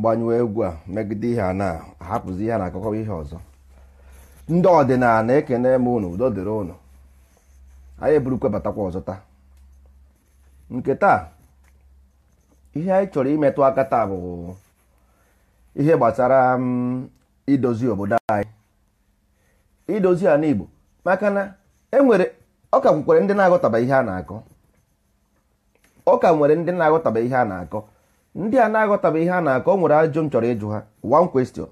ka egwu a megide ihe a na ahapụzi ihe a na-akọkọba ihe ọzọ ndị ọdịnala ekene m unu udo dịrị ụnụ anyị eburukwe batakwa ọzọ taa nke taa ihe anyị chọrọ imetụ aka taa bụ ihe gbasara mm, idozi obodo anyị idozi ala Igbo maka na enwere ọ ka ndị na-aghọtaba ihe a na-akọ ọ ka nwere ndị na-aghọtaba ihe a na-akọ ndị a na-aghọtabe ihe a na-akọ o nwere ajụ m chọrọ ịjụ ha one question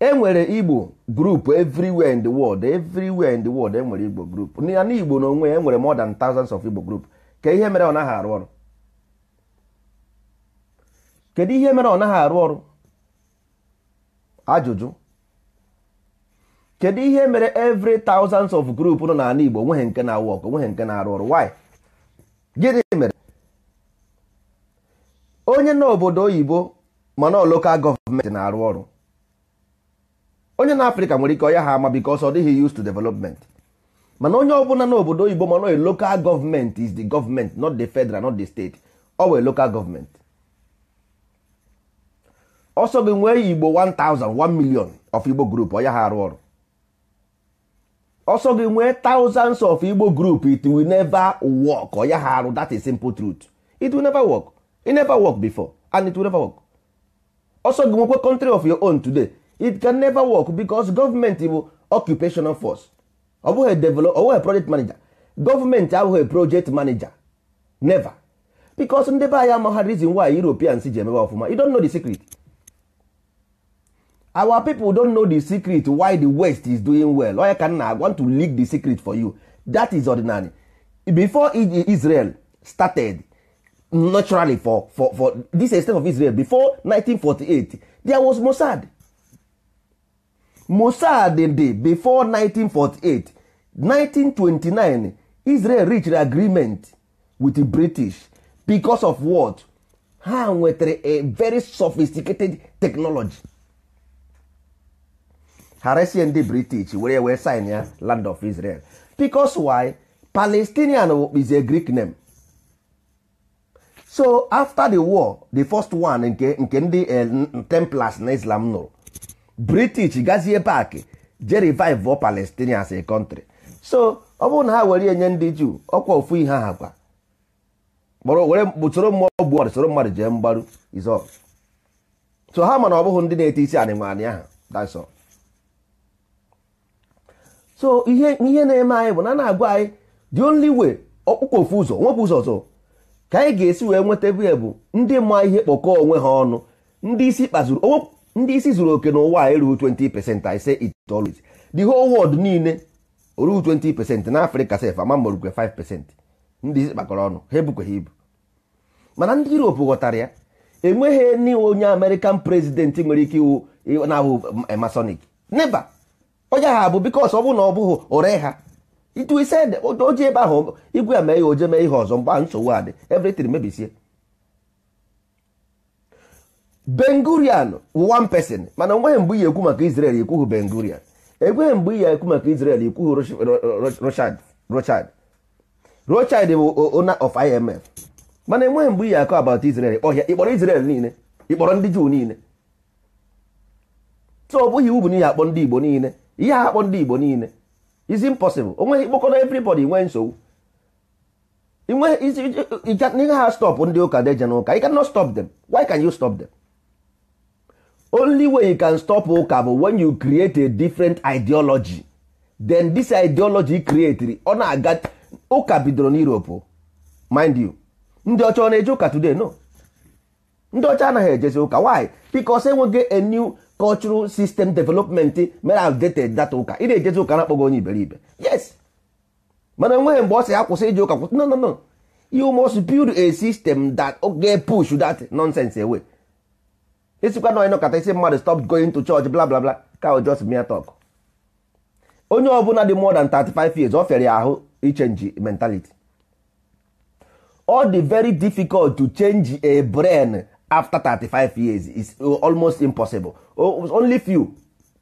e nwere igbo group everywhere in the world everywhere in the world e nwere igbo group na igbo n'onwe ya enwere more than thousands of igbo group ka ihe mere ọ naghị arụ ọrụ kedu ihe mere ọ naghị arụ ọrụ ajụjụ kedu ihe mere every thousands of group nọ n'ala igbo nweghị nke na-awọk nweghị nke na-arụ ọrụ why gịnị onye na obodo oyibo mana lokal gọọmenti na-arụ ọrụ onye na afrịka nwere ike ọya ha ama because ọ dịghị use to development mana onye ọbụla na obodo oyibo mana lokal gọọmenti is the government not the federal not the state ọ wee lokal gọọmenti ọsọ gị nwee igbo 1000 1 million of igbo group ọya ha arụ ọrụ ọsọ gị nwee thousands of igbo group it will never work ọya ha arụ that is simple truth it will never work e never work before and it will never work also gị nwekwe country of your own today it can never work because gọọmenti bụ occupational force ọ bụghị develop ọ bụghị project manager gọọmenti abụghị project manager never because ndị be anyị amagha reason why europeans ji emebe ọfụma you don't know the secret our people don't know the secret why the west is doing well onye ka nna want to leak the secret for you that is ordinary before israel started naturally for for for this state of Israel before 1948 there was Mossad Mossad dị before 1948 1929 Israel reached agreement with the British because of what ha nwetara a very sophisticated technology haresie ndị British were wee sign ya land of Israel because why Palestinian is a Greek name so after the war the first one nke nke ndị eh, templars na islam nụrụ british gazie pak je revive palestine as a country so ọ bụrụ na ha were enye ndị juu ọkwa ofu ihe ha kwa soro mmụọ gbuo soro mmadụ jee mgbaru izọ so ha mana ọ bụghị ndị na-ete isi anịmanị ahụ that's so ihe ihe na-eme anyị bụ na na-agwa anyị the only way ọkpụkpọ ofu ụzọ nwepụ ụzọ ọzọ ka anyị ga-esi wee nweta ebe bụ ndị ma ihe kpọkọọ onwe ha ọnụ ndị isi kpazuru ndị isi zuru oke n'ụwa a erughị 20 percent I say it always the whole world niile orughị 20 percent na Afrịka sef ama morukwe 5 percent ndị isi kpakọrọ ọnụ ha ha ibu mana ndị Europe ghọtara ya enweghị ni onye amerịkan prezident nwere ike iwu na-ahụ um, masonic neba onye ha bụ bikos ọ bụrụ na ọ bụghị ore ha itu ise ede oji ebe ahụ igwe ya mee ya oje mee ihe ọzọ mgbe ahụ nsogbu adị everything mebisie bengurian one person mana nweghị mgbe ihe ekwu maka israel ekwughị bengurian ekweghị mgbe ihe ekwu maka israel ekwughị rochard rochard rochard bụ owner of imf mana enweghị mgbe ihe akọ about israel ọhịa ịkpọrọ israel niile ịkpọrọ ndị juu niile so ọ bụghị iwu bụ n'ihe akpọ ndị igbo niile ihe akpọ ndị igbo niile is impossible onweghị ịkpọkọrọ everybody nwee nsogbu ihe ha stop ndị ụka deje n'ụka you cannot stop them why can you stop them only way you can stop ụka bụ when you create a different ideology then this ideology creatri ọ na-aga ụka bidoro n'Europe mind you ndị ọcha ọ na-eje ụka today no ndị ọcha anaghị ejezi ụka why because enweghị a new cultural system development mere outdated data ụka ị na-ejezi ụka na onye iberibe yes mana enweghị mgbe ọ sị ya kwụsị ije ụka kwụsị no no no you must build a system that ga push that nonsense away isikwa na onye nọkọta isi mmadụ stop going to church bla bla bla ka o just mere talk onye ọbụla dị more than 35 years ọ fere ya ahụ ichenji mentality ọ dị very difficult to change a brain after 35 years is uh, almost impossible only few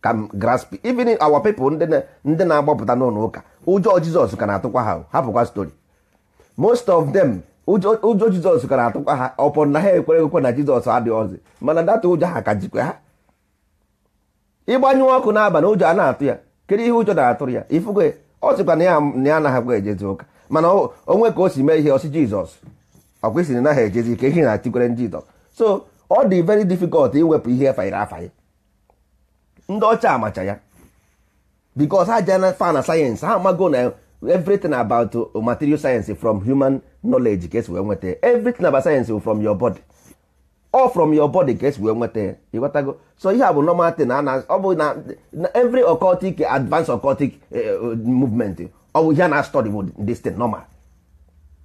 can grasp even our people ndị na-agbapụta n'ụlọ ụka ụjọ jizọs ka na-atụkwa ha hapụkwa story most of them ụjọ jizọs ka na-atụkwa ha ọpọ na ha ekwere ekwe na jizọs adịghọzi mana data ụjọ ha ka jikwa ha ịgbanyụ ọkụ n'abalị ụjọ a na-atụ ya kedu ihe ụjọ na-atụrụ ya ifugo ọ sịkwa na ya anaghịkwa ejezi ụka mana onwe ka o si mee ihe ọsị jizọs ọkwa isi na ha ejezi ka ehi na-atikwere ndị jizọs so ọ dị very difficult iwepụ ihe efanyere afanye ndị ọcha amacha ya because ha jana fa na sayensị ha amago na everything about material science from human knowledge ka esi wee nweta everything about science from your body all from your body ka esi wee nweta ịghọtago so ihe a bụ normal thing na ọ bụ na every occultic advanced occultic eh, eh, movement ọ bụ ihe na-study bụ this normal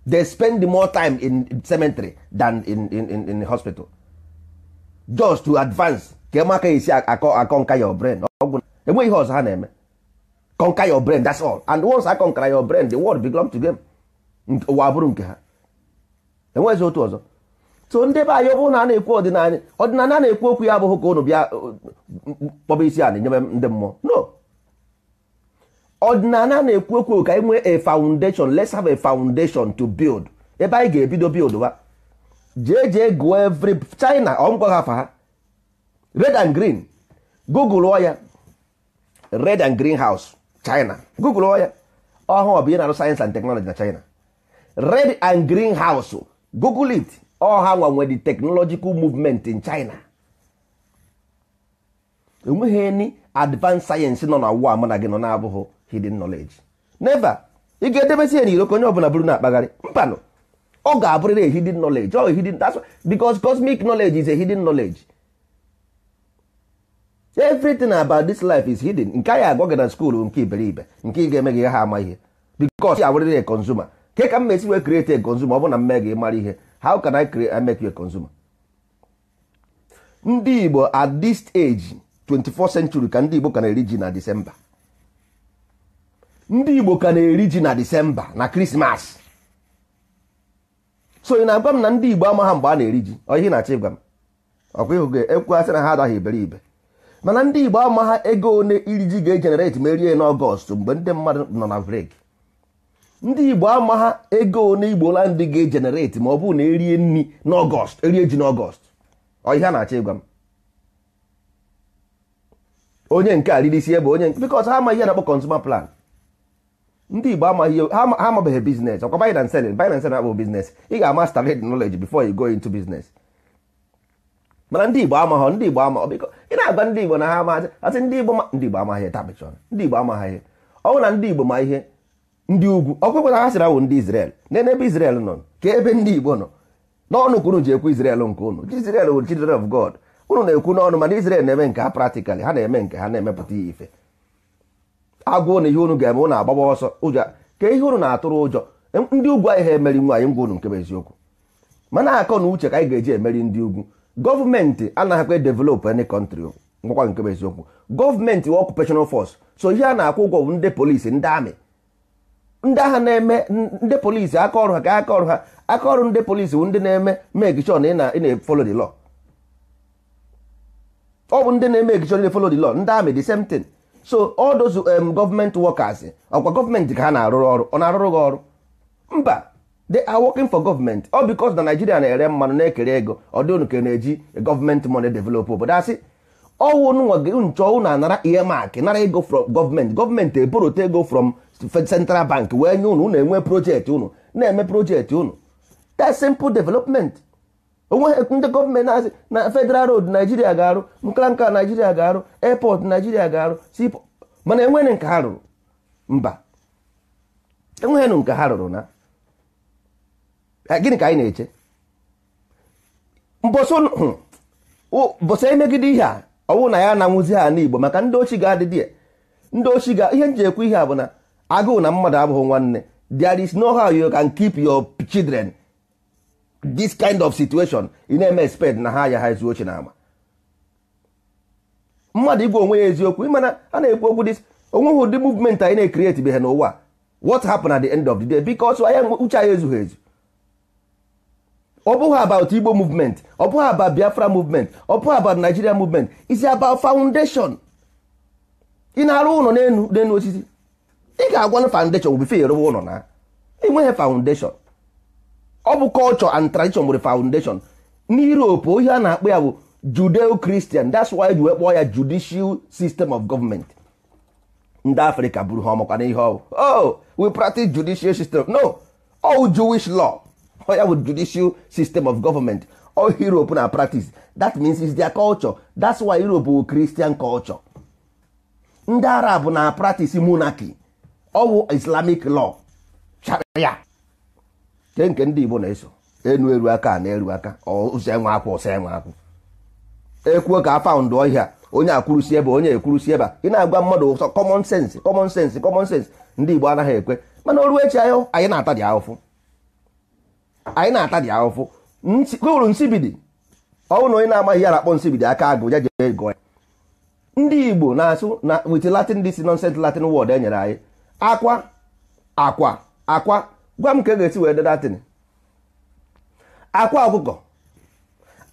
they spend more time in cemetery than in, in, in, in hospital just to advance ka maka esi akọ your brain ọgwụ enweghị ihe ọzọ ha na-eme conquer your brain that's all and once I conquer your brain the world belong to them ụwa bụrụ nke ha enweghịzi otu ọzọ so ndị be anyị ọ bụrụ na a na-ekwu ọdịnala ọdịnala na-ekwu okwu ya abụghị ka ụnụ bịa uh, kpọba isi ala nyebe ndị mmụọ no ọdịnala na-ekwu ekwu ka e nwee a foundation let's have a foundation to build ebe anyị ga-ebido build wa jee jee gụọ every China ọmgwaghafa ha red and green google ọ ya red and green house China google ọ ya ọhụụ bụ ihe na-arụ sayensị and technology na China red and green house google it ọha nwanwe the technological movement in China enweghị ni advanced sayensị nọ na ụwa mụ na gị nọ na-abụghị hidden knowledge never ị ga-edebesi ya n'iro ka onye ọbụla bụrụ na-akpagharị mpanụ ọ ga-abụrịrị a hidden knowledge ọ hidden that's because cosmic knowledge is a hidden knowledge everything about this life is hidden nke anyị agwa gị na skuul nke iberibe nke ị ga emeghị ha ama ihe because ya a consumer ke ka m mesi wee create a consumer ọ bụ na mme gị mara ihe how can I create I ndị Igbo at this age 24 century ka ndị Igbo ka na-eri ji na December ndị igbo ka na-eri ji na disemba na krismas so ị na-agwa m na ndị igbo ama ha mgbe a na-eri ji ihe na achị ịgwa m ọkwa ịhụ ga-ekwugasị na ha adaghị iberibe mana ndị igbo ama ego one iri ji ga-ejenereti ma erie n'ọgọst mgbe ndị mmadụ nọ na brek ndị igbo ama ego one igbo la ndị ga-ejenereti ma ọ bụrụ na erie nri n'ọgọst erie ji n'ọgọst oihe a na achị ịgwa m onye nke a riri isi ebe onye nke bikọs ha ama ihe na-akpọ kọnsuma plan ndị igbo amaghị ha amabeghị biznes ọkwa buy and selling buy and biznes ị ga-ama started knowledge before you go into business mana ndị igbo amaghọ ndị igbo amaghọ biko ị na-agwa ndị igbo na ha amaghị asị ndị igbo ndị igbo amaghị tabịchọn ndị igbo amaghị ihe ọnwụ na ndị igbo ma ihe ndị ugwu ọkwekwe na ha sịra wụ ndị izrel n'ebe israel nọ ka ebe ndị igbo nọ n'ọnụ ka unu ji ekwu israel nke unu israel wụ children of god unu na-ekwu n'ọnụ mana izrel na-eme nke ha practically ha na-eme nke ha na-emepụta ihe ife agụụ na ihe unu ga-eme ụnụ agbagba ọsọ ụjọ ka ihe unu na-atụrụ ụjọ ndị ugwu anyị ha emeri nwaanyị ngwa unu nke bụ eziokwu mana akọ na uche ka anyị ga-eji emeri ndị ugwu gọọmenti anaghịkwa develop any country ngwakwa nke bụ eziokwu gọọmenti wa occupational fọs so ihe a na-akwụ ụgwọ bụ ndị polisi ndị amị ndị agha na-eme ndị polisi aka ọrụ ha ka aka ọrụ ha aka ọrụ ndị polisi bụ ndị na-eme make sure na ị na-efolo ọ bụ ndị na-eme make na ndị amị the same thing so all those um, government workers ọkwa gọọmenti ka ha na-arụrụ ọrụ ọ na-arụrụ gị ọrụ mba they are working for government ọ because na Nigeria na-ere mmanụ na-ekere ego ọ dị unu ka na-eji gọọmenti money develop obodo asị ọwụ nchọ na anara earmark nara ego from gọọmenti gọọmenti eborote ego from central bank wee nye unu unu enwe projekti unu na-eme projekti unu te simple development onweghị ndị gọọmenti na-asị na federal road naijiria ga-arụ nka nka naijiria ga-arụ airport naijiria ga-arụ mana enweghị nke ha rụrụ mba enweghị nke ha rụrụ na gịnị ka anyị na-eche bụsa emegide ihe a na ya na-anwụzi ha n'igbo maka ndị ochi ga-adịdị ndị ochi ga ihe nji ekwu ihe a bụ na agụụ na mmadụ abụghị nwanne there no ha you can keep your children this kind of situation ị na-eme expect na ha ya ha ezu oche na ama mmadụ igwe onwe ya eziokwu ịmana a na-ekwu okwu dis onweghị ụdị movement anyị na-ekreti be ha n'ụwa what happened at the end of the day because anya uche anyị ezughị ezu ọ bụghị about Igbo movement ọ bụghị about Biafra movement ọ bụghị about Nigeria movement is about foundation ị na-arụ ụlọ n'elu n'elu osisi ị ga-agwa na foundation bụ bife rụwa ụlọ na nweghị foundation ọ bụ culture and tradition nwere foundation n'Europe ohe a na-akpọ ya bụ Judeo-Christian that's why ji wee kpọọ ya judicial system of government ndị africa bụrụ ha ọmakwa n'ihe oh we practice judicial system no all Jewish law ọ ya bụ judicial of government Europe na practice that means is their culture that's why Europe bụ Christian culture ndị Arab na practice monarchy ọ bụ Islamic law sharia nke nke ndị Igbo na-eso enu eru aka na eru aka ụzọ enwe akwụ ọsọ enwe akwụ ekwuo ka afaụndụ ọhịa onye akwụrụsi ebe onye ekwurusi ebe ị na-agwa mmadụ ụsọ kọmọn sensị kọmọn sensị kọmọn sensị ndị Igbo anaghị ekwe mana oru echi anyị anyị na-ata dị ahụfụ anyị na-ata dị ahụfụ uru nsibidi ọwụ na onye na-amaghị ya akpọ nsibidi aka agụ ya jee ego ya ndị Igbo na-asụ na wit Latin dị si nonsens Latin word e nyere anyị akwa akwa akwa gwa m ka e ga-esi wee dedatin akwa ọkụkọ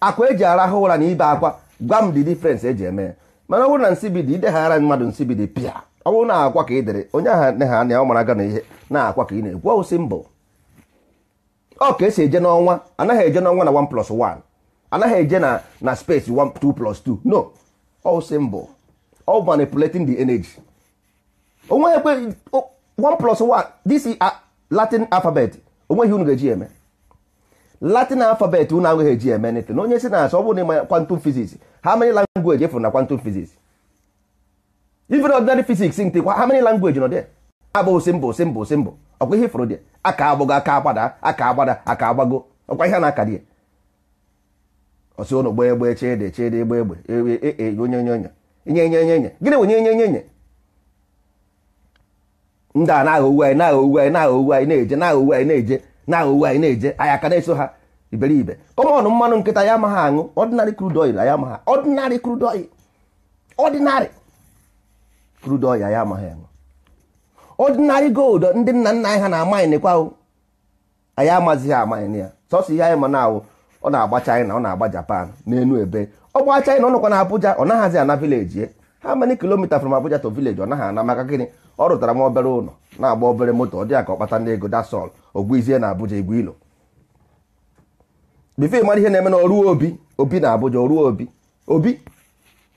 akwa eji arahụ ụra na ibe akwa gwa m dị e eji eme mana ọ bụrụ na nsibidi ideghara mmadụ nsibidi pịa ọ bụrụ na akwa ka ị dere onye aha nne ha anya ọ mara aga na ihe na akwa ka ị na-ekwu ọwụsị mbụ ọ ka esi eje n'ọnwa anaghị eje n'ọnwa na 1 plus 1 anaghị eje na na space plus 2 no mbụ ọ manipulating the energy onwe ekwe 1 plus 1 latin alfabet onweghị unu ga-eji eme latin alfabet unu agaghị eji eme nịtị na onye si na asị ọ bụrụ na ịma kwantum fiziks ha many langweji efuru na kwantum fiziks even ordinary fiziks nke kwa many langweji nọ dị abụghị simbụ simbụ simbụ ọkwa ihe fụrụ dị aka agbụgo aka agbada aka agbada aka agbago ọkwa ihe na-aka dị ọsị ụnụ gbee egbe chede chede egbe egbe e, e, e, onye nye onye nye nye nye nye gịnị bụ nye nye nye nye ndị a na-aghọ anyị na-aghọ anyị na-aghọ anyị na-eje na-aghọ anyị na-eje na-aghọ anyị na-eje anyị aka na-eso ha iberibe kọmọn mmanụ nkịta ya amaghị aṅụ ọdịnarị crude oil ya amaghị ọdịnarị crude oil ọdịnarị crude oil ya amaghị aṅụ ọdịnarị gold ndị nna nna anyị ha na-amaịnịkwa anyị amazighị amaịnị ya sọsọ ihe anyị ma na ọ na-agba China ọ na-agba Japan na-enu ebe ọ gbaa China ọ nọkwa na Abuja ọ naghịzi ana vileji ha many kilomita from Abuja to village ọ naghị ana maka gịnị ọ rụtara m obere ụlọ na-agba obere moto ọ dị ka ọ kpata ndị ego dasọl ogbuizie na Abuja igwe ilo bifo ịmara ihe na-eme na oruo obi obi na Abuja oruo obi obi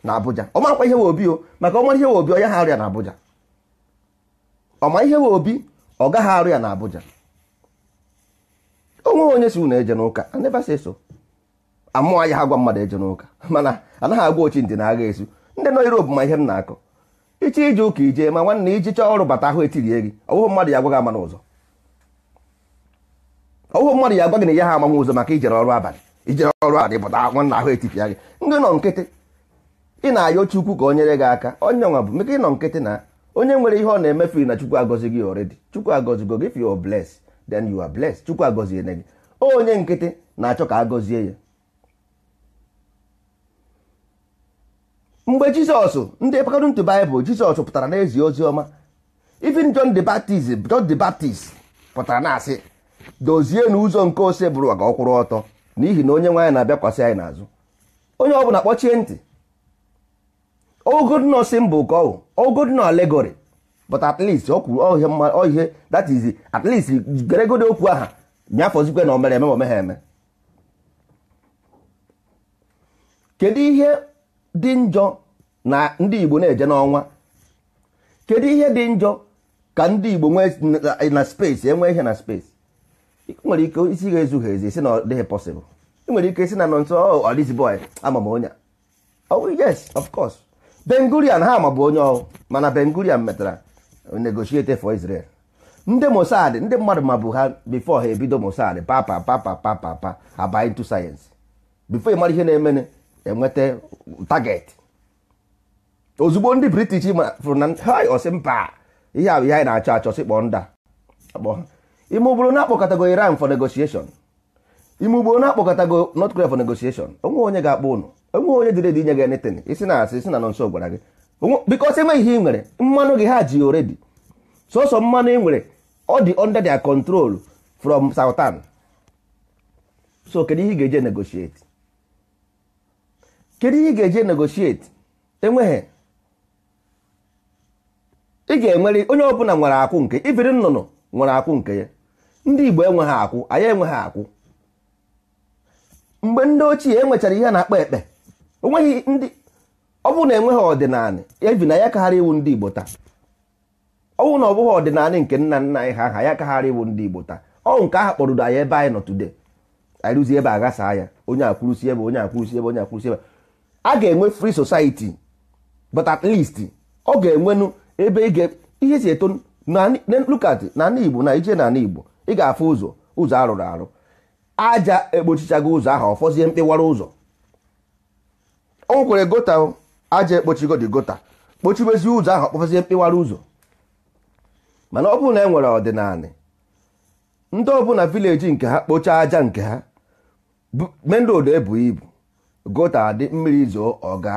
na Abuja ọ marakwa ihe we obi o maka ọ mara ihe we obi onye ha arịa na Abuja ọ ma ihe we obi ọ gaghị arụ ya na Abuja onweghị onye si unu eje n'ụka so amụọ ya ha gwa mmadụ eje n'ụka mana anaghị agwa ochi ndị na agha esu ndị nọ Europe ma ihe m na-akọ iche ije ụka ije ma nwanne iji e chọọ ọrụ bata ahụ etirie gị ọwụhụ mmadụ ya agwaghị ama n'ụzọ ọwụhụ mmadụ ya agwaghị na ya ha amanwe ụzọ maka ijere ọrụ abalị ijere ọrụ abalị bata nwanna ahụ etipịa gị ndị nọ nkịtị ị na-ayọ ochukwu ka o nyere gị aka onye nwa bụ meka ịnọ nkịtị na onye nwere ihe ọ na-emefu na chukwu agọzi gị oredi chukwu agọzigo gị if you are blessed then you are blessed chukwu agọziene gị onye nkịtị na-achọ ka agọzie ya mgbe jizọs ndị pakọrọ ntụ baịbụl jizọs pụtara na-ezi ozi ọma even john the baptist john the baptist pụtara na-asị dozie na ụzọ nke ose bụrụ aga ọkwụrụ ọtọ n'ihi na onye nwaanyị na-abịakwasị anyị n'azụ onye ọbụla kpọchie ntị ogodno simbụ ka ọ ogodno alegori but at least ọ kwuru oihe that is at least okwu aha nyafọzikwe na omere eme ma omegha eme kedu ihe dị njọ na ndị Igbo na-eje n'ọnwa kedu ihe dị njọ ka ndị Igbo nwee na space enwee ihe na space nwere ike isi ga-ezughị ezi si na ọ dịghị possible ị nwere ike isi na nọ nso ọdizi oh, boy ama m onye oh yes of course Bengurian ha mabụ onye ọhụụ mana Bengurian metara negotiate for Israel ndị Mossad ndị mmadụ mabụ ha before ha ebido Mossad papa papa papa papa aba into science before ị mara ihe na-emene enweta target ozugbo ndị british fụrụ na osi mpa ihe a ihe anyị na-achọ achọ sị kpọọ nda ime ụgboro na-akpọkọtago iran for negotiation ime ụgboro na-akpọkọtago north korea for negotiation onwe onye ga-akpọ ụnụ onwe onye dịrị dị inye gị netin isi na asị isi na nọ nso gwara gị bikos enweghị ihe ị nwere mmanụ gị ha ji oredi sọsọ mmanụ ị nwere ọ dị under their control from southern so kedu ihe ị ga-eje negotiate kedu ihe ị ga-eje negotiate enweghị ị ga-enwere onye ọbụla nwere akwụ nke ibiri nnụnụ nwere akwụ nke ya ndị Igbo enweghị akwụ anyị enweghị akwụ mgbe ndị ochie enwechara ihe na-akpa ekpe onweghị ndị ọ bụrụ na enweghị ọdịnala ebi na ya kagharị iwu ndị Igbo taa ọnwụ na ọ bụghị ọdịnala nke nna nna anyị ha aha ya kagharị iwu ndị Igbo taa ọ nke aha kpọrụdo anyị ebe anyị nọ today anyị rụzie ebe aghasa ya onye akwụrụsi ebe onye akwụrụsi ebe onye akwụrụsi ebe a ga-enwe free society but at least ọ ga-enwenu ebe ị ihe si eto na na ana igbo na ije na ana igbo ị ga-afụ ụzọ ụzọ arụrụ arụ aja ekpochichago ụzọ ahụ ọfọzie mkpịwara ụzọ o nwekwere gota aja ekpochigo dị gota kpochibezi ụzọ ahụ ọkpọfọzie mkpịwara ụzọ mana ọ bụrụ na e nwere ọdịnala ndị ọbụla vileji nke ha kpochaa aja nke ha mendụ ebu ibu gota adị mmiri zoo ọga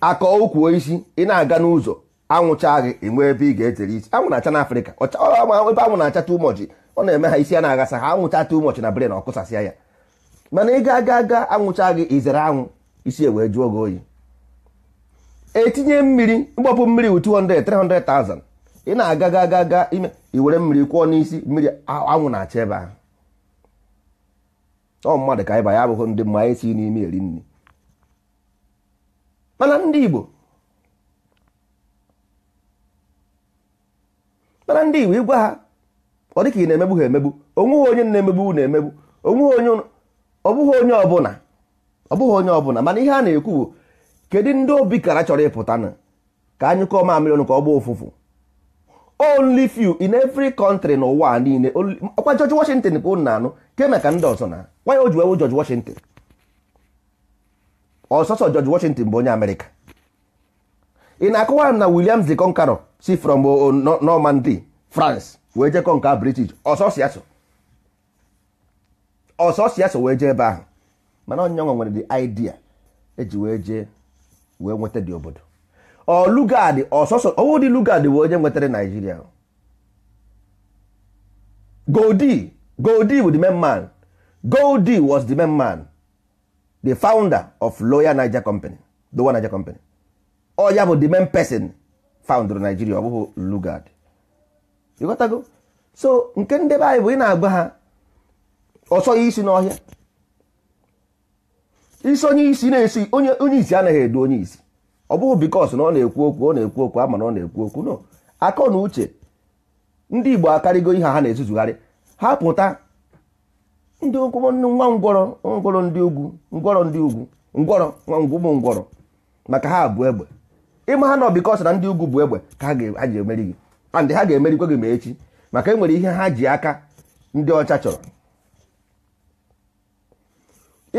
akọ ukwu isi ị na-aga n'ụzọ anwụcha gị enwe ebe ị ga ezere isi anwụ na-acha n'afrịka ebe anwụ na-acha ụmọchị ọ na-eme ha isi a na-aghasa ha anwụcha ụmọchị na bren ọkụsasịa ya mana ị ga-aga aga anwụcha gị izere anwụ isi ewee jụọ gị oyi etinye mmiri mgbapụ mmiri wu 200 300,000 ị na-aga aga aga ime iwere mmiri kwụọ n'isi mmiri anwụ na-acha ebe ahụ ọ mmadụ ka ịba ya abụghị ndị mma anyị si n'ime eri nri mana ndị Igbo mana ndị Igbo ịgwa ha ọ dịka ị na-emegbu ha emegbu onweghị onye na-emegbu na-emegbu onweghị onye ọ bụghị onye ọbụla ọ onye ọbụla mana ihe a na-ekwu bụ kedu ndị obi kara chọrọ ịpụta na ka anyị kọọ mamịrị ọnụ ka ọ gba ụfụfụ only few in every country n'ụwa niile ọkwa George Washington bụ na anụ nke maka ndị ọzọ na why o ji wee George Washington ọsọsọ George Washington bụ onye Amerịka ị na akụwa m na Williams the Conqueror si from uh, uh, Normandy France wee jee kọnka British ọsọsịasọ ọsọsịasọ wee jee ebe ahụ mana onye nwere the idea eji wee jee wee nweta dị obodo ọ ọsọsọ ọwụ dị Lugard onye nwetara Naijiria Goldy Goldy bụ main man goldi was the main man the founder of Loyal Niger Company Dowa Niger Company oh, bụ the main person founder Nigeria ọ bụghị Lugard ịghọtago so nke ndebe anyị bụ ị na-agba ha ọsọ oh, isi n'ọhịa isi onye isi na-esi onye isi anaghị edu onye isi ọ bụghị bikos na ọ na-ekwu okwu ọ na-ekwu okwu ama na ọ na-ekwu okwu no akọ na uche ndị Igbo akarịgo ihe ha na-ezuzugharị ha pụta ndị ụkwụ nwa ngwọrọ ngwọrọ ndị ugwu ngwọrọ ndị ugwu ngwọrọ nwa ngwụmụ ngwọrọ maka ha bụ egbe ịma ha nọ bikọs na ndị ugwu bụ egbe ka ha ji emeri gị and ha ga-emerikwa gị ma echi maka enwere ihe ha ji aka ndị ọcha chọrọ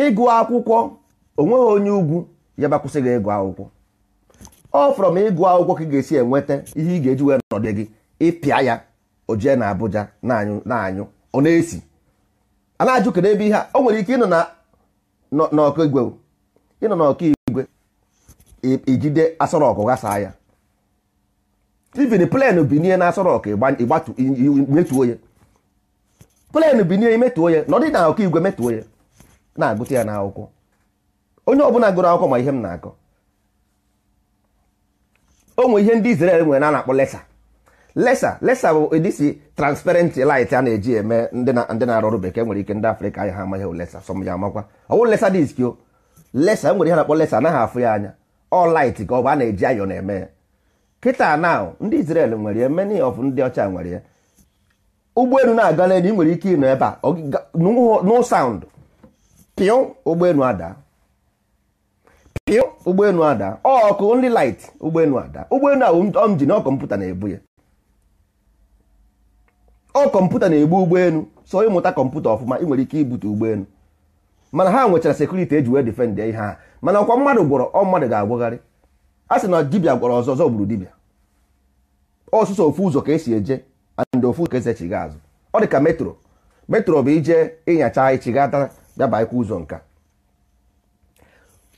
ịgụ akwụkwọ onweghị onye ugwu ya bakwụsị gị ịgụ akwụkwọ ọ fọrọ m ịgụ akwụkwọ ka ị ga-esi enweta ihe ị ga-eji wee nọdụ gị ịpịa ya o jee na Abuja na-anyụ ọ na-esi a na-ajụ kedu ebe ihe a o nwere ike ịnọ na n'ọkaigwe ịnọ n'ọkaigwe ijide e, e asọrọkụ ghasaa ya tivin plen binie na asọrọkụ metuo ya plen binie imetuo ya na ọ dị na igwe metuo ya na-agụta ya n'akwụkwọ onye ọbụla gụrụ akwụkwọ ma ihe m na-akọ o nwe ihe ndị Izrel nwere na a na-akpọ lesa lesa lesa bụ edisi transparent light a na-eji eme ndị na-arụ ọrụ bekee e nwere ike ndị afrịka anyị ha amaghị hụ lesa sọm ya amakwa ọ bụrụ lesa disk o lesa e nwere ihe na-akpọ lesa anaghị afụ ya anya ọ light ka ọ bụ a na-eji ayọ na-eme ya kịta na ndị Israel nwere ya many of ndị ọcha nwere ya ụgbọelu na-aga n'elu ị nwere ike ịnọ ebe a no sound pịụ ụgbọelu ada pịụ ụgbọelu ada ọkụ ndị light ụgbọelu ada ụgbọelu ahụ ọ m ji na kọmputa na-ebu ya ọ kọmputa na-egbu ụgbọelu so ịmụta kọmputa ọfụma ị nwere ike ibute ụgbọelu mana ha nwechara sekuriti eji wee ihe ha mana ọkwa mmadụ gwọrọ ọ mmadụ ga-agwagharị a sị na dibia gwọrọ ọzọ ọzọ gburu dibịa ọsụsọ ofu ụzọ ka esi eje and ofu ka eze chiga azụ ọ dị ka metro metro bụ ije ịnyacha daba dabaikwa ụzọ nka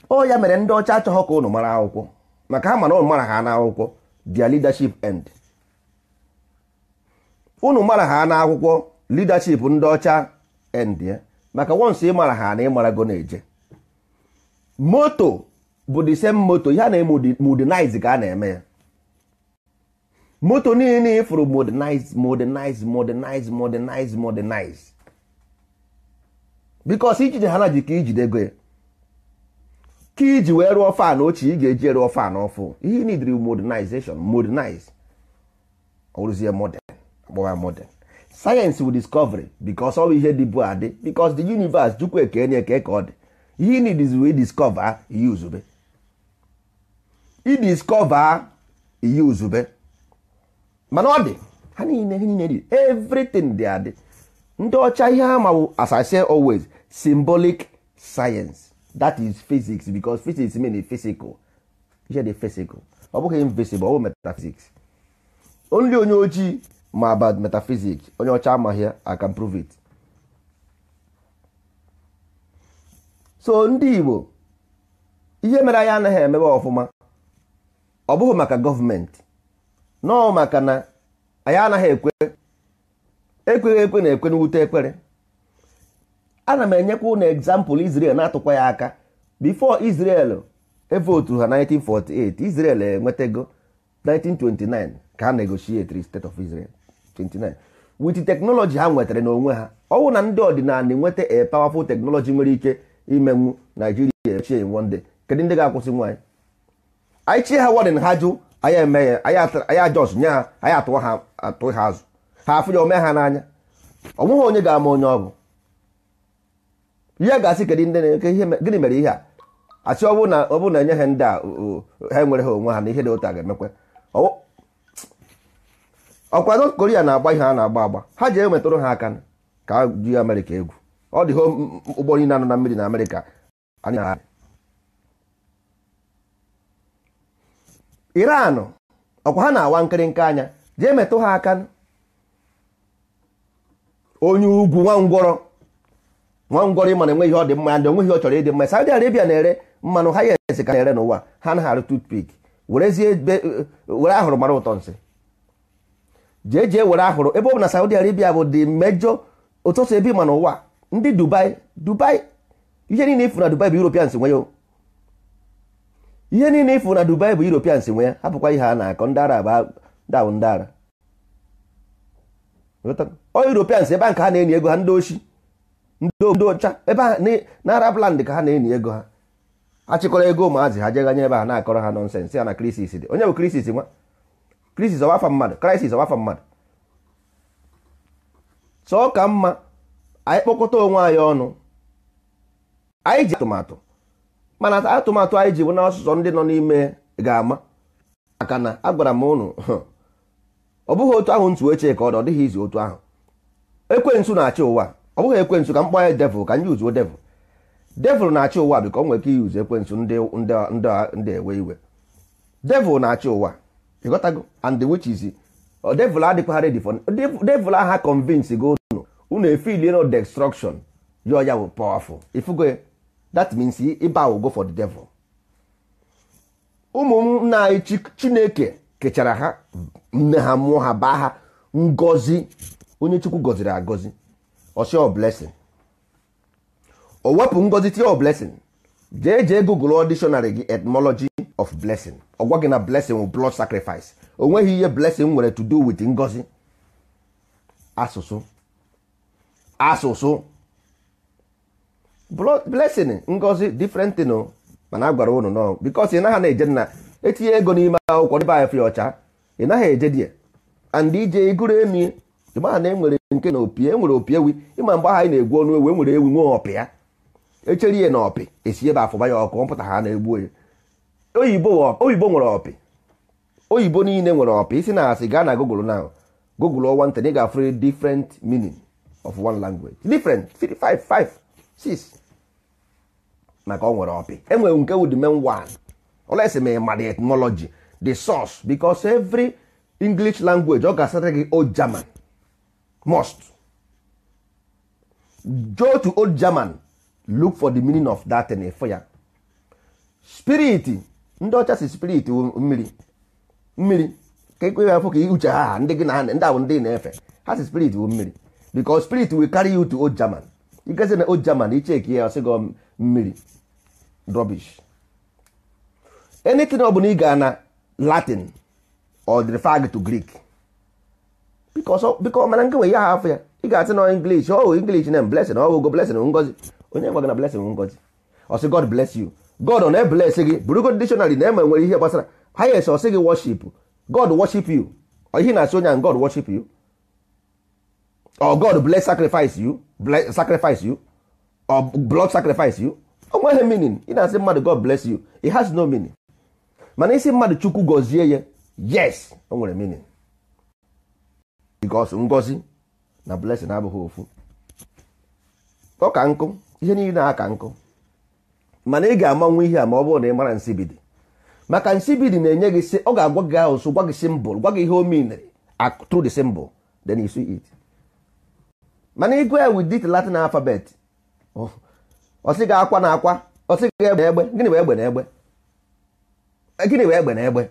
ọ ya mere ndị ọcha achọghọ ka ụnụ mara akwụkwọ maka ha mana ụnụ mara ha n'akwụkwọ dia leadership end unu mara ha n'akwụkwọ leadership ndị ọcha endie maka wọnsụ ịmara ha na ịmarago na-eje moto bụ the same moto ya na modernize ka a na-eme ya moto niile ifuru modernize modernize modernize modernize modernize bikos ijide ha na ji ka ijide ego ka iji wee rụọ fan ochie ị ga-eji rụọ fan ọfụ ihe nidiri modernization modernize ọrụzie modern gbọwa modern sayensị wụ discovery because ọ bụ ihe dịbu adị di the universe chukwu ekene eke ka ọ dị ihe nidiz wee discover ihe uzube idiscover ihe ozube. mana ọ dị ha niile ha niile dị everything dị adị ndị ọcha ihe ha mawụ as I say always symbolic science that is physics because physics mean physical ihe dị physical ọ bụghị invisible ọ bụ metaphysics only onye ojii ma bad metaphysics onye ọcha amaghị ya prove it so ndị Igbo ihe mere anyị anaghị emebe ọfụma ọ bụghị maka gọọmenti nọọ maka na anyị anaghị ekwe ekweghị ekwe na ekwe n'wute ekpere ana m enyekwa na egzampụl Israel na-atụkwa ya aka bifo isrel evotu ha 1948 Israel enwetago 1929 ka a negotiate state of Israel 29 with teknọlọji ha nwetara n'onwe ha ọwụ na ndị ọdịnala enweta a powerful technology nwere ike imenwu naijiria echie one day kedu ndị ga-akwụsị nwaanyị anyị chie ha wadin ha jụ anyị eme ya anyị ajọs nye ha anyị atụwa ha atụ ha azụ ha afụ ya ome ha n'anya ọ nweghị onye ga-ama onye ọ bụ ihe ga-asị kedu ndị na-eke gịnị mere ihe a asị ọ na enye ha ndị a ha enwere ha onwe ha na ihe dị ụta ga-emekwa ọkwa North Korea na-agba ihe a na-agba agba ha ji enwetụrụ ha aka ka ju Amerịka egwu ọ dịghị ụgbọ niile anọ na mmiri na Amerịka Iran ọkwa ha na-awa nkịrịnka anya ji metụ ha aka onye ugwu nwangwọrọ nwangwọrọ ịma na enweghị ihe ọ dị mma ndị onweghị ọ chọrọ ịdị mma Saudi Arabia na-ere mmanụ ha ya esi ka na-ere n'ụwa ha naghị arụ toothpick were ahụrụ mara ụtọ nsị jee jee were ahụrụ ebe ọ bụ na Saudi Arabia bụ dị mejọ ụtụtụ ebe ma n'ụwa ndị Dubai Dubai ihe niile ifu na Dubai bụ Europeans nwe ihe niile ifu na Dubai bụ Europeans nwe ya hapụkwa ihe a na-akọ ndị Arab daụ ndị Arab ọ Europeans ebe nke ha na-enye ego ha ndị ochi ndị ọcha ebe na Arab land ka ha na-enye ego ha achịkọrọ ego ụmụazị ha jeganye ebe ha na-akọrọ ha nọnsensị ya na krisis dị onye bụ krisis nwa krisis ọwa afa mmadụ krisis ọwa afa mmadụ sọ ka mma anyị kpokọta onwe anyị ọnụ anyị ji atụmatụ mana atụmatụ anyị ji bụ na ọsụsọ ndị nọ n'ime ga-ama maka na agwara m ụnụ ọ bụghị otu ahụ ntụ ochie ka ọ dị ọ dịghị izu otu ahụ ekwensu na-achị ụwa ọ bụghị ekwensu ka m anyị ya devil ka m yuzuo devil devil na-achị ụwa ka ọ nwere ike iyuzu ekwensu ndị ewe iwe devil na-achị ụwa ịghọtago and the which is devil oh, adịkwa ready for devil aha convince gị unu unu efili no destruction yọ ya wụ powerful ifugo that means ịba go for the devil na anyị chineke kechara ha nne ha mụọ ha baa ha ngozi onye chukwu gọziri agọzi ọsịọ blessing o wepụ ngozi tie o blessing jee jee google auditionary gị etymology of blessing ọ gwa gị na blessing wụ blood sacrifice o nweghị ihe blessing nwere to do with ngozi asụsụ asụsụ blessing ngozi different thing o mana a gwara ụnụ nọ because ị naghị na-eje na etinye ego n'ime akwụkwọ dịbe anya fịa ọcha ị naghị eje die and ije iguru emi ịmaha na enwere nke na opi enwere opi ewi ịma mgbe anyị na-egwu ọnụ ewu enwere ewi nwee ọpịa echeri ya na ọpị esi ebe afụba ya ọkụ ọ pụta ha na-egbu ya oyibo nwere ọpị oyibo niile nwere ọpị isi na asị gaa na google now google ọwa ntị na ị ga-afụrụ different meaning of one language different 5 5 6 maka ọ nwere ọpị enwere nke wụ the main olesi ma ịma the di the source because every english language ọ ga-asara gị old german must go to old german look for the meaning of that thing for ya spirit ndị ọcha si spirit mmiri mmiri ka ekwe afọ ka iuche ha ndị gị na ndị ndị na-efe ha si spirit wu mmiri because spirit will carry you to old German igezi na old German icheki ya ọsị gị mmiri drọbish anything ọ bụla ị gaa na Latin or refer to Greek biko mana nke nwe ya ha afọ ya ị ga asị na English ọ oh, wụ English na blessing ọ oh, wụgo blessing ngozi onye gwa gị na blessing ngozi ọsị God bless you god ọ na-ebelesi gị bụrụgod dictionary na eme nwere ihe gbasara highest ọ sị gị worship god worship you ihe na-asị onye god worship you or god bless sacrifice you bless sacrifice you or blood sacrifice you o nweghị meaning ị na-asị mmadụ god bless you it has no meaning mana isi mmadụ chukwu gọzie ya yes o nwere meaning because ngozi na blessing abụghị ofu ọ ka nkụ ihe niile na-aka nkụ mana ị ga amanwe ihe a ma ọ bụrụ na ị mara nsibidi maka nsibidi na-enye gị sị ọ ga-agwa gị ahụ so gwa gị simbol gwa gị ihe o miniri through the symbol then you see it mana ịgụ ya with dit latin alphabet oh, ọsị gị akwa na akwa ọsị gị egbe egbe gịnị bụ egbe na egbe eh, gịnị bụ egbe na egbe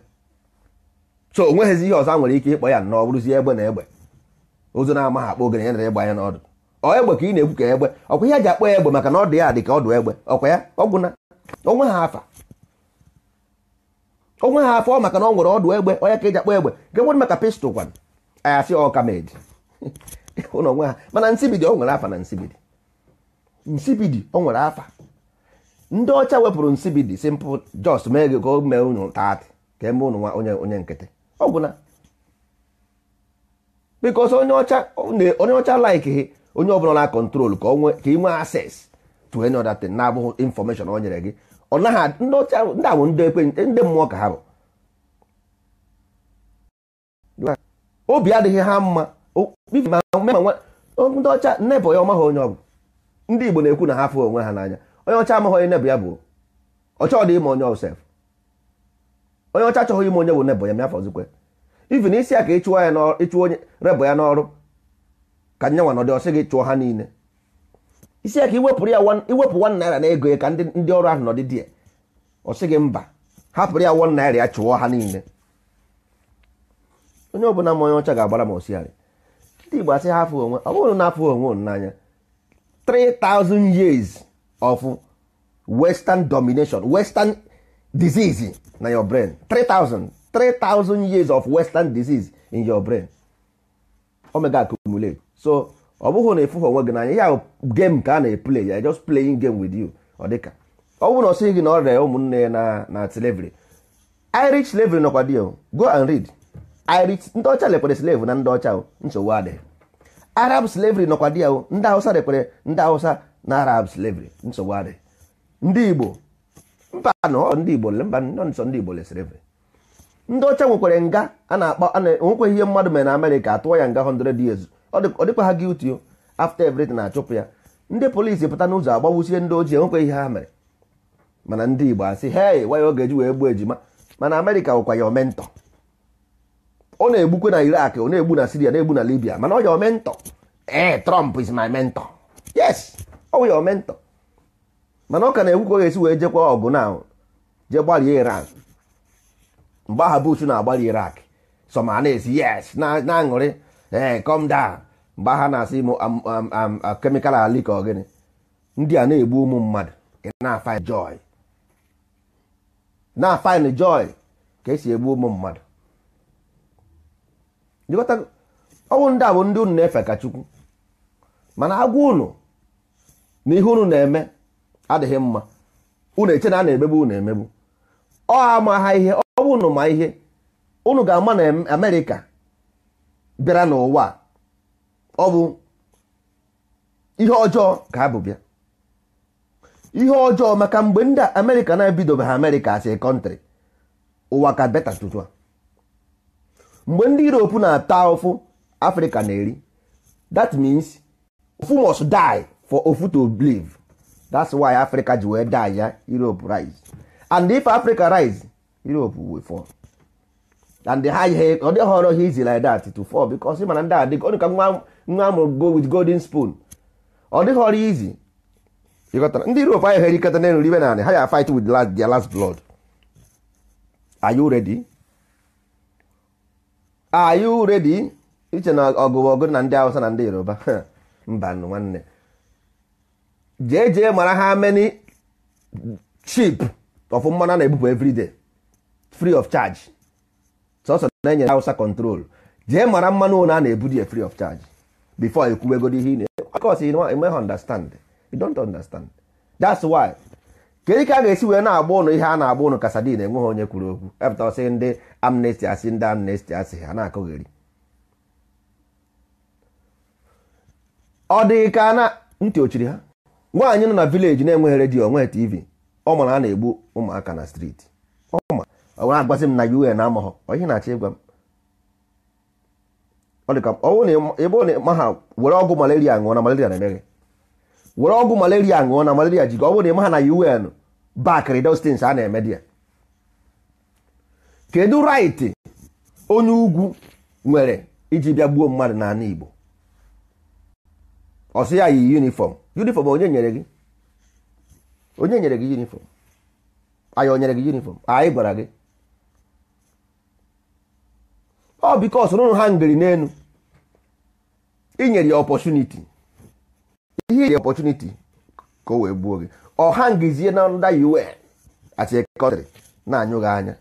so o nweghịzi ihe ọzọ a nwere ike ịkpọ ya nnọọ bụrụzie egbe na egbe ozo na-amaghị akpọ ogene ya na ịgba ya n'ọdụ egbe ka ị na-ekwu ka egbe ọkwa ihe a ji akpọ egbe maka na ọ dị ya dị ka ọdụ egbe ọkwa ya ọgwụna onwe ha afa onwe ha afọ maka na ọ nwere ọdụ egbe onye ka eji akpọ egbe nke nwere maka pistol kwan ayasị ọka meji ụlọ onwe ha mana nsibidi ọ nwere afa na nsibidi nsibidi ọ nwere afa ndị ọcha wepụrụ nsibidi simple just mee gị ka o mee unu taatị ka eme ụnụ nwa onye onye nkịtị ọgwụna bikos onye ọcha onye ọcha like onye ọbụla na kọntrol ka ị nwee access to any other thing na-abụghị information ọ nyere gị ọ naghị ndị ọcha ndị bụ ndị ekwe ndị mmụọ ka ha bụ obi adịghị ha mma ndị ọcha nnebọ ya ọmaghị onye ọ ndị Igbo na-ekwu na ha fụ onwe ha n'anya onye ọcha amaghị onye nebụ ya bụ ọcha ọ dị ime onye ọsef onye ọcha achọghị ime onye bụ nebụ ya mafọzikwe ivin isi a ka ịchụwa ya ịchụ onye rebọ ya n'ọrụ ka nyanwa nọdị ọsị gị chụọ ha niile isi ya ka iwepụrụ ya iwepụ wan naira na ego ya ka ndị ọrụ ahụ nọdị dị ya ọsị gị mba hapụrụ ya wan naira ya chụọ ha niile onye ọbụla ma onye ọcha ga-agbara ma osiharị ndị Igbo asị ha onwe ọ bụrụ na afụ onwe n'anya 3000 years of western domination western disease na your brain 3000 3000 years of western disease in your brain omega accumulate so ọ bụghị na ịfụghị onwe gị n'anya ya game ka a na-eplay ya just playing game with you ọ dịka ọ bụrụ na ọ sịghị gị na ọ rịa ụmụnne ya na na slavery Irish slavery nọkwa dị go and read Irish ndị ọcha lekpere slave na ndị ọcha nsogbu adịghị Arab slavery nọkwa dị ahụ ndị Hausa lekpere ndị Hausa na Arab slavery nsogbu adịghị ndị Igbo mba nọ ndị Igbo mba nọ nsọ ndị Igbo le slavery ndị ọcha nwekwara nga a na-akpọ nwekweghị ihe mmadụ mere na Amerịka atụọ ya nga 100 years ọ dịkwa ha guilty o after everything na-achụpụ ya ndị polisi pụta n'ụzọ agbawusie ndị ojii enwekwa ihe ha mere mana ndị Igbo asị hey waya ọ eji wee gbuo ejima mana Amerịka nwekwa ya omentọ ọ na-egbukwe na Iraq ọ na-egbu na Syria na-egbu na Libya mana ọ ya omentọ ee eh, Trump is my mentor yes ọ ya omentọ mana ọ ka na-egbukwa ga-esi wee jekwa ọgụ na je Iran mgbe aha Bush na-agbali Iraq so na-esi yes na-aṅụrị ee eh, come mgbe ha na-asị m kemikal ali ka gịnị ndị a na-egbu ụmụ mmadụ na-afine joy na-afine joy ka esi egbu ụmụ mmadụ ọnwụ ndị a bụ ndị unu na-efe ka chukwu mana agwa unu na ihe unu na-eme adịghị mma unu eche na a na-emegbu unu emegbu ọ ama ha ihe ọ bụ unu ma ihe unu ga-ama na amerika bịara n'ụwa ọ bụ ihe ọjọọ ka abụ bịa ihe ọjọọ maka mgbe ndị amerịka na ebido ha amerịka as a country ụwa ka beta tụtụ mgbe ndị europe na-ata ofu afrịka na-eri that means ofu must die for ofu to believe that's why africa ji wee die ya europe rise and if africa rise europe will fall. and ha ihe ọ dịghị ọrụ ihe izi like that to fall because mana ndị adịgo ọ dịka nwa amụrụ go with golden spoon ọ dịghị ọrụ izi ịghọtara ndị Europe anyị herikọta na n'elu ibe na anị ha ya fight with last, their last blood are you ready are you ready iche na ọgụ ọgụ na ndị awụsa na ndị Yoruba mba nwanne jee jee mara ha many cheap of mmanụ na-ebupụ everyday free of charge sọsọ na-enye Hausa control jee mara mmanụ ụlọ a na-ebudi ya free of charge bifọ before ekwuwegodi ihe ị na-eme understand you don't understand that's why kedu ka a ga-esi wee na-agba ụlọ ihe a na-agba ụlọ ụnụ kasadin enweghị onye kwuru okwu epụta ọsị ndị amnesty asị ndị amnesty asị ha na-akụgheri ọ dịghị ka na ntị ochiri ha nwaanyị nọ na vileji na-enweghị redio onweghị tv ọ mara a na-egbu ụmụaka na streeti ọwụrụ agwasị m na un na amahọ ihe na-achọ ịgwa m ọ dịka ọnwụ na ebe ọ na-eme ha were ọgwụ malaria ṅụọ na malaria na-eme gị were ọgwụ malaria ṅụọ na malaria ji gị ọ bụrụ na eme ha na un bakịrị dostins a na-eme di ya kedu raịtị onye ugwu nwere iji bịa gbuo mmadụ n'ala Igbo ọsị ya yi yunifọm yunifọm onye nyere gị onye nyere gị yunifọm anyị o nyere gị yunifọm anyị gwara gị ọ bikos nụrụ ha ngiri n'elu inyere ya ọpọchuniti ihe ya ọpọchuniti ka o wee gbuo gị ọ ha ngizie na nda un atikọtịrị na-anyụghị anya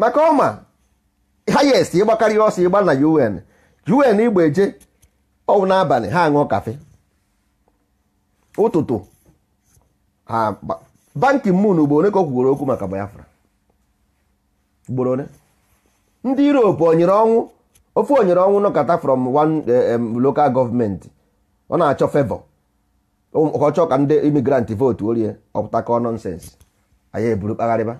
maka ọma hayest ịgbakarị ọsọ ịgba na un un igba eje ọwụ n'abalị ha aṅụọ kafe ụtụtụ ha bankị mun bụ onye ka o kwugoro okwu maka Biafra ugboro ole ndị Europe onyere ọnwụ ofe onyere ọnwụ nọkọta from one eh, local gọọmenti ọ na-achọ fevọ ọ ka ndị imigranti vootu orie ọpụtakọ nọnsens anyị eburu kpagharịba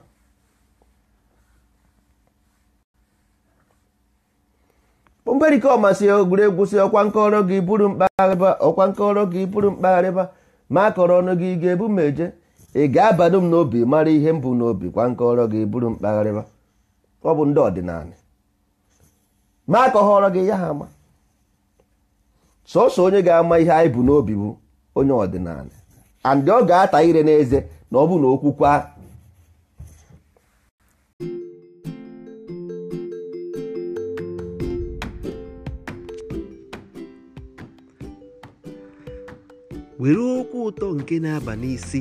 mberike ọmasị egwuregwu si ọkwa nkọrọ gị buru mkpagharịba ọkwa nkọrọ gị buru mkpagharịba ma akọrọ ọnụ gị ga-ebu m eje ị ga-abado m n'obi mara ihe m bụ n'obi kwa nkọrọ gị buru mkpagharịba ọ bụ ndị ọdịnala ma ka gị ya ha ama sọsọ onye ga-ama ihe anyị bụ n'obi bụ onye ọdịnala and ọ ga-ata ire n'eze na ọ bụ na okwukwa were okwu ụtọ nke na-aba n'isi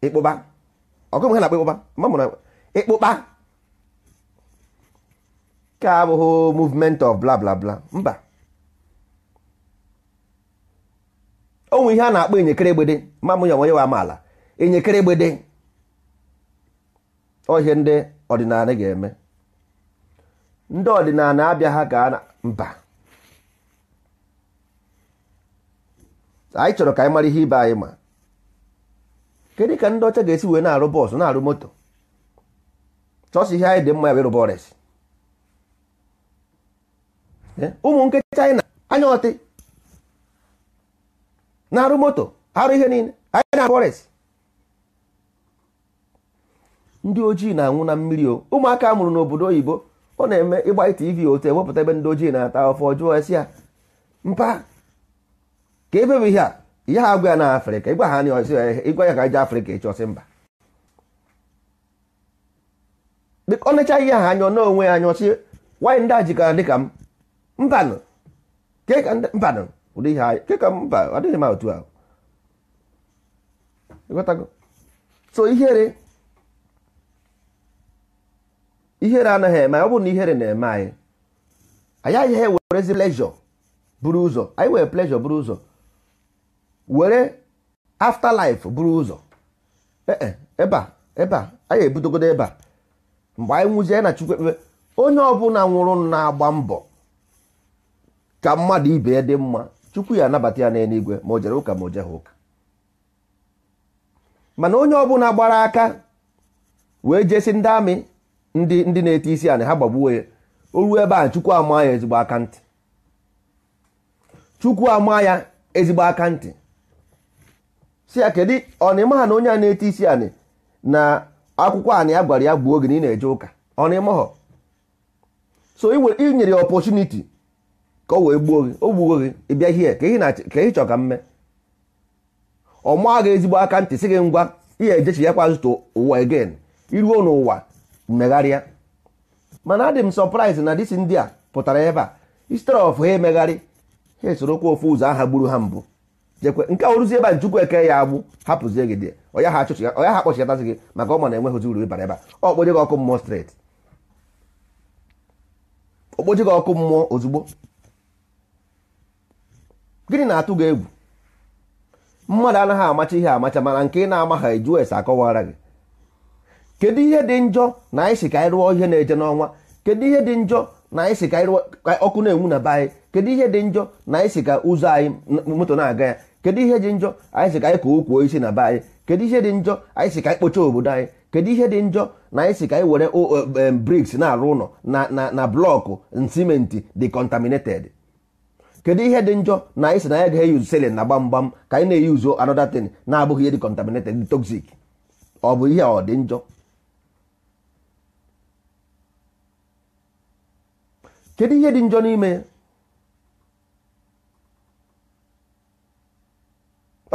ịkpụba ọgụ ha na-akpọ ịkpụba ma mụrụ ịkpụba ka abụghị movement of bla bla bla mba ọnwụ ihe a na-akpọ enyekere egbede ma mụ ya nwanyị wa amaala enyekere egbede ihe ndị ọdịnala ga-eme ndị ọdịnala abịa ha ka mba anyị chọrọ ka anyị mara ihe ibe anyị ma kedu ka ndị ọcha ga-esi wee na-arụ bọọsụ na-arụ moto chọsị ihe anyị dị mma ya ịrụba ọrịa eh, ụmụ nke China anya ọtị na-arụ moto arụ ihe niile anyị na-arụ ọrịa ndị ojii na-anwụ na mmiri o ụmụaka mụrụ n'obodo oyibo ọ na-eme ịgba tv otu ewepụta ebe ndị ojii na-ata afọ jụọ esi ya mpa ka ebe bụ ihe a ihe a agwa ya na afrịka ịgwa ha ịgwa ya ka je afrịka ịchọsị ọsị mba ọ necha ihe ha anyọ n'onwe ya anyọ si nwanyị ndị a jikọrọ dịka m mbanụ mbanụ ụdị ihe anyị keka mba ọ dịghị m otu ahụ so ihere ihere anaghị eme ọ bụ na ihere na-eme anyị anyị agaghị ewerezi plejọ buru ụzọ anyị were plejọ buru ụzọ were afterlife buru ụzọ ee e, ebe a ebe a anyị ebudogodo ebe a mgbe anyị nwụzie na chukwu ekpebe onye ọbụla nwụrụ na-agba mbọ ka mmadụ ibe ya dị mma chukwu ya anabata ya n'eluigwe ma o jere ụka ma o jeghị ụka mana onye ọbụla gbara aka wee jesi ndị amị ndị ndị na-ete isi anị ha gbagbuo ya o ruo ebe a chukwu ama ya ezigbo aka ntị chukwu ama ya ezigbo aka ntị si ya kedu ọnịma ha na onye a na-ete isi anị na akwụkwọ anị ya gwara ya gbuo oge na ị na-eje ụka ọnịma ha so ị nyere ya ọpọchuniti ka o wee gbuo gị o gbuo gị ịbịa hie ka ị chọ ka mme ọ maa gị ezigbo aka ntị si gị ngwa ihe ejechi ya kwa zụta ụwa egen iruo n'ụwa megharịa mana adị m sọpraịz na disi ndị a pụtara ebe a instead of ha emegharị ha esorokwa ofu ụzọ aha gburu ha mbụ jekwe nke ọrụzi ebe a nchukwu eke ya agbụ hapụzie gị dị ya ha akpọchigatasị gị maka ọ ma na enweghịzi uru ịbara ebe a okpoje gị ọkụ mmụọ streti okpoje gị ọkụ mmụọ ozugbo gịnị na-atụ gị egwu mmadụ anaghị amacha ihe amacha mana nke ị na-ama ha akọwara gị kedu ihe dị njọ na anyị si ka anyị rụọ ihe na-eje n'ọnwa kedu ihe dị njọ na anyị si ka anyị rụọ ọkụ na-enwu na be anyị kedu ihe dị njọ na anyị si ka ụzọ anyị moto na-aga ya kedu ihe dị njọ anyị si ka anyị kụọ ukwu isi na be anyị kedu ihe dị njọ anyị si ka anyị kpochaa obodo anyị kedu ihe dị njọ na anyị si ka anyị were briks na-arụ ụlọ na na blọkụ simenti dị contaminated kedu ihe dị njọ na anyị si na anyị ga selin na gbamgbam ka anyị na-eyuzu another na-abụghị ihe dị toxic ọ bụ ihe ọ dị njọ kedu ihe dị njọ n'ime ya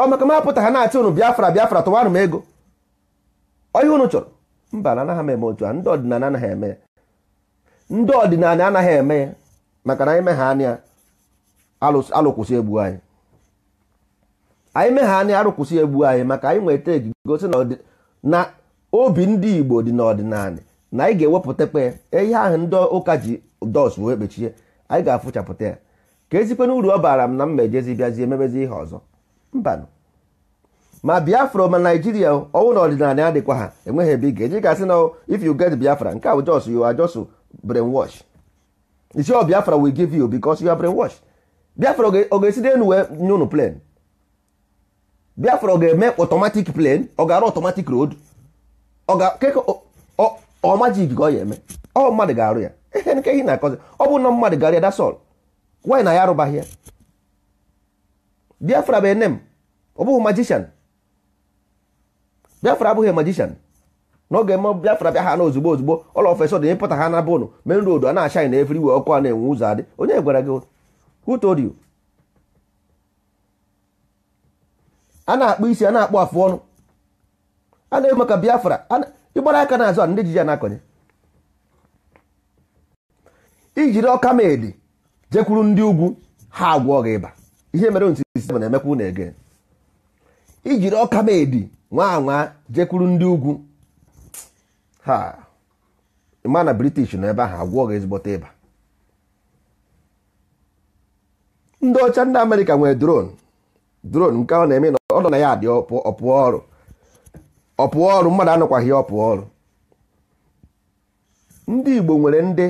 ọ maka ma apụta ha na-achị unu biafra biafra tụwarụ m ego ọ ihe unu chọrọ mba na anaghị m eme otu a ndị ọdịnala anaghị eme ya ndị ọdịnala anaghị eme ya maka na anyị megha anya alụkwụsị egbu anyị anyị megha anya arụkwụsị egbu anyị maka anyị nweta egigosi na obi ndị igbo dị n'ọdịnala na anyị ga-ewepụtakwa e ihe ahụ ndị ụka ji Dọs wee kpechie anyị ga-afụchapụta ya ka ezikwana uru ọ baara m na m mejezi bịazie emebezi ihe ọzọ mbanụ ma biafra ma naijiria ọnwụ na ọdịnala adịkwa ha enweghị ebe ị ga-eji gasị na if you get biafra nke a bụ jos you are just wash. isi ọ biafra will give you because you are wash. biafra ọ ga-esi n'elu wee nye unu plane biafra ọ ga-eme automatic plane ọ ga-arụ automatic road ọ ga-ekeke ọ majik ka ọ ya eme ọ mmadụ ga-arụ ya ihe nke ihe na-akọzi ọ bụ nọ mmadụ garịa dasọl wanyị na ya arụbaghị ya biafra bụ enem ọ bụghị majishan biafra abụghị majishan n'oge mma biafra bịa ha ozugbo ozugbo ọla ofesọ dị ịpụta ha na bụnụ men road a na-achaghị na efiri wee ọkụ a na-enwe ụzọ adị onye gwara gị who told a na-akpụ isi a na-akpụ afụ ọnụ a na-eme maka biafra ịgbara aka na azụ a ndị ji ya na-akọnye ijiri ọka medi jekwuru ndị ugwu ha agwọ gị ịba ihe mere ntisisi na-emekwa na ege ijiri ọka medi nwa anwa jekwuru ndị ugwu ha ma na british nọ ebe ahụ agwọ gị ezigbote ịba ndị ọcha ndị amerịka nwere dron dron nke ọ na-eme na ọ nọ na ya dị ọpụọ ọrụ ọpụọ ọrụ mmadụ anọkwaghị ọpụọ ọrụ ndị igbo nwere ndị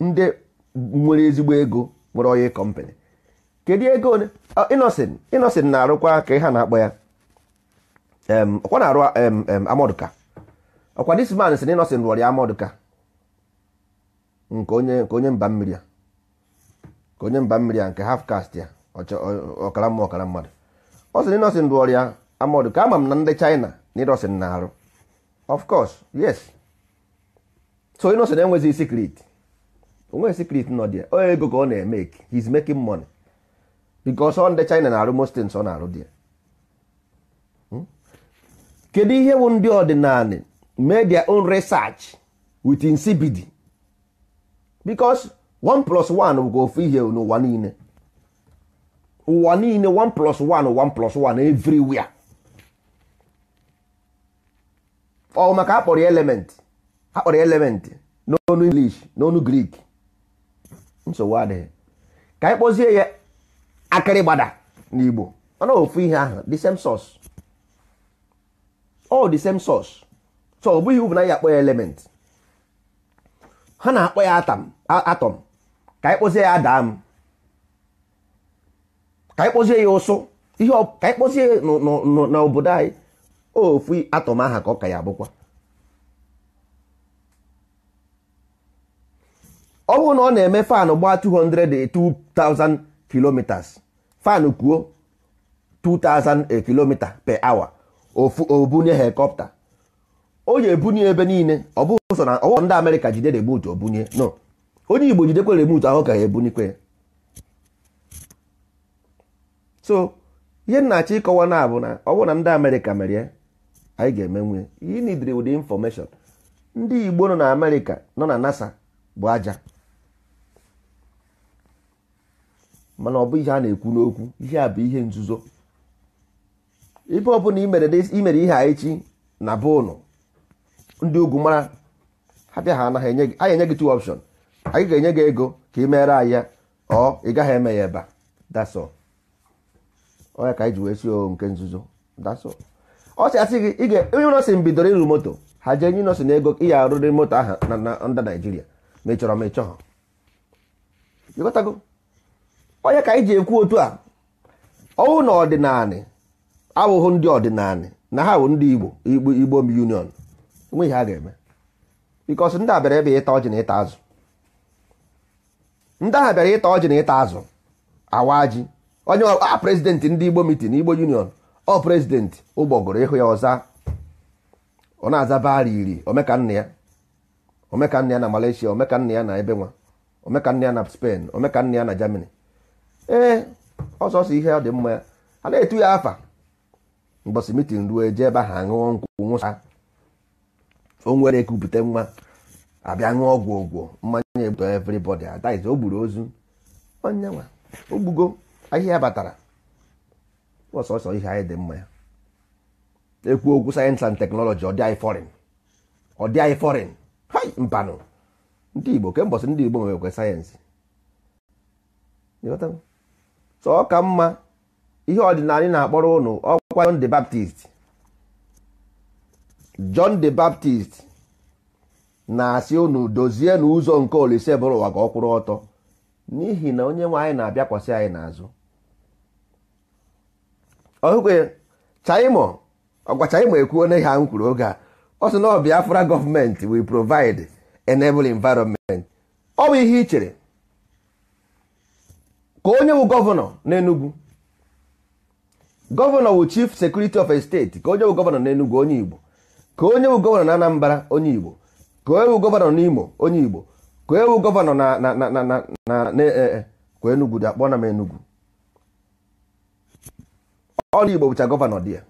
ndị nwere ezigbo ego nwere onye kọmpanị kedu ego ah, Innocent Innocent na-arụkwa ka ha na-akpọ ya ọkwa na-arụ amọdụka ọkwa this man si na Innocent rụrụ ya amọdụka nke onye nke onye mba mmiri a nke half caste ya ọkara mma ọkara mmadụ ọ sị na Innocent rụrụ ya amọdụ ama m na ndị China na Innocent na-arụ of course yes so Innocent enweghị secret onwe secret nọ dia onye ego ka ọ na-emeki he's making money because ọ ndị China na-arụ most things ọ na-arụ dia hmm? kedu ihe bụ ndị ọdịnala mee their own research with insipidi because one plus one bụ ka ofu ihe n'ụwa niile ụwa niile one plus one one plus one everywhere ọ maka akpọrọ element akpọrọ element n'ọnụ English n'ọnụ Greek nsogbu adịghị ka anyị kpọzie ya akịrị gbada n'igbo ọ na ofu ihe ahụ the same source same source so ọ bụghị uru na ya akpọ ya element ha na-akpọ ya atọm atom ka anyị kpọzie ya adam ka anyị kpọzie ya ụsụ ihe ka anyị kpọzie n'obodo anyị ofu atọm aha ka ọ ka ya abụkwa ọ bụrụ na ọ na-eme fanụ gbaa 200-2000 kilometers fanụ kwuo 2000 kilomita per hour ofu obunye helikọpta o ji ebunye ebe niile ọ bụghị ụzọ na ọwụ ndị amerịka jide remut obunye no onye igbo jidekwe remut ahụ ka ha ebunikwe so ihe nnachi ịkọwa na abụ na ọ bụrụ na ndị amerịka merie anyị ga-emenwe eme you need the information ndị igbo nọ na amerịka nọ na nasa bụ aja mana ọ bụ ihe a na-ekwu n'okwu ihe a bụ ihe nzuzo ebe ọbụla imere ihe a echi na be ụnụ ndị ugwu mara ha bịa ha anaghị enye gị anyị enye gị two option anyị ga-enye gị ego ka ị meere anyị ya ọ ị gaghị eme ya ebe a dasọ onye ka anyị wee si o nke nzuzo dasọ ọ sị asị gị ị ga-enye nọsị mbidoro ịrụ moto ha jee nye nọsị na ego ị ya arụrị moto ahụ na ndị Naijiria ma ị chọrọ ma ị chọghọ ịghọtago onye ka anyị ji ekwu otu a ọwụ na ọdịnanị abụghị ndị ọdịnanị na ha bụ ndị Igbo Igbo union enweghị ha ga-eme bikos ndị abịara ebe ịta ọjị na ịta azụ ndị ahụ bịara ịta ọjị na ịta azụ awa ji onye a prezidenti ndị Igbo mitin Igbo union ọ prezidenti ụgbọgụrụ ịhụ ya ọza ọ na-aza bara iri omekanna ya omekanna ya na Malaysia omekanna ya na ebe nwa omekanna ya na Spain omekanna ya na Germany ee eh, ọsọsọ ihe ọ dị mma ya a na-etu ya afa mbọsị mitin ruo eje ebe ahụ aṅụọ nkwụ nwụsa onwere ekupụta nwa abịa ṅụọ ọgwụ ọgwụ mmanya egbuto everybody adaiz o gburu ozu onyenwa ogbugo ahịhịa batara ọsọsọ ihe anyị dị mma ya ekwu okwu sayensị and teknọlọji ọ dị anyị fọrin ọ dị anyị fọrin hai mpanụ ndị igbo kembọsị ndị igbo nwekwe sayensị so ọ ka mma ihe ọdịnala na-akpọrọ ụnụ ọkwa John the Baptist John the Baptist na-asị ụnụ dozie n'ụzọ nke Olise bụrụ ụwa ka ọ kwụrụ ọtọ n'ihi na onye nwe anyị na-abịakwasị anyị n'azụ ọhụkwe chaimo ọgwa chaimo ekwuo na ha m oge a ọ sị na ọ Biafra gọọmenti will provide enable ọ bụ ihe i chere ka onye wụ gọvanọ n'Enugwu. gọvanọ wụ chief sekuriti of a ka onye wu gọvanọ n'Enugwu onye Igbo ka onye wu gọvanọ na Anambra onye Igbo ka onye wụ gọvanọ n'Imo onye Igbo ka onye wụ gọvanọ na na na na na e, e, dị akpọ na m Enugu onye Igbo bụcha gọvanọ dị ya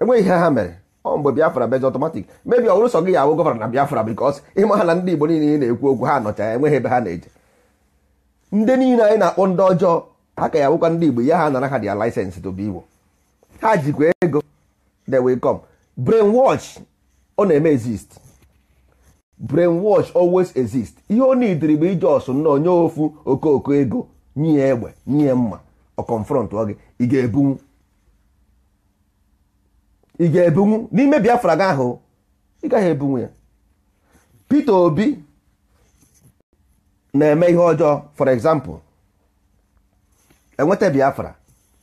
enweghị ihe ha mere ọ mgbe Biafra bezi ọtọmatik mebi ọ bụrụ sọ gị ya awụ gọvanọ na Biafra bikos ịma ha na ndị Igbo niile na-ekwu okwu ha nọcha enweghị ebe ha na-eje ndị niile anyị na-akpọ ndị ọjọọ ha ka ya bụkwa ndị Igbo ya ha nara ha dia license to be Igbo ha jikwa ego they will come brainwash ọ na-eme exist brainwash always exist ihe ọ nidiri bụ ije ọsụ nnọọ ofu okooko ego nye egbe nye mma ọ confront ọ gị ị ga-ebunwu ị ga-ebunwu n'ime Biafra gị ahụ ị gaghị ebunwu ya Peter Obi na-eme ihe ọjọọ for example enweta biafra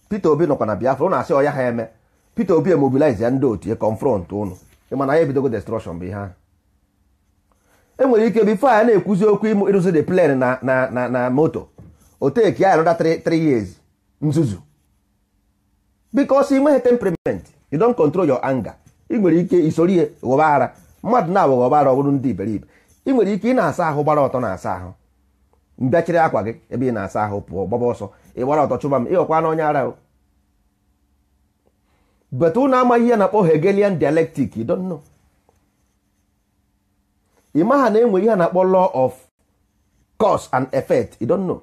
peter obi nọkwa na biafra na asị ọya ha eme peter obi emobilize ya ndị otu ya confront ụnụ ịmana ya ebidogo destruction bụ ihe ahụ enwere ike bifo a na-ekwuzi okwu ịrụzi de plane na na na moto oteki ya anọda 3 years nzuzu because ị nweghị temperament you don't control your anger ị nwere ike isoro ghọba ara mmadụ na-abụ ghọba ara ọ bụrụ ndị iberibe ị nwere ike ị na-asa ahụ gbara ọtọ na-asa ahụ mbịachiri akwa gị ebe ị na-asa ahụ pụọ gbaba ọsọ ị gbara ọtọ chụba m ịghọkwa na onye ara but ụnụ amaghị ihe na-akpọ Hegelian dialectic you don't know ị maha na enwe ihe na-akpọ law of cause and effect you don't know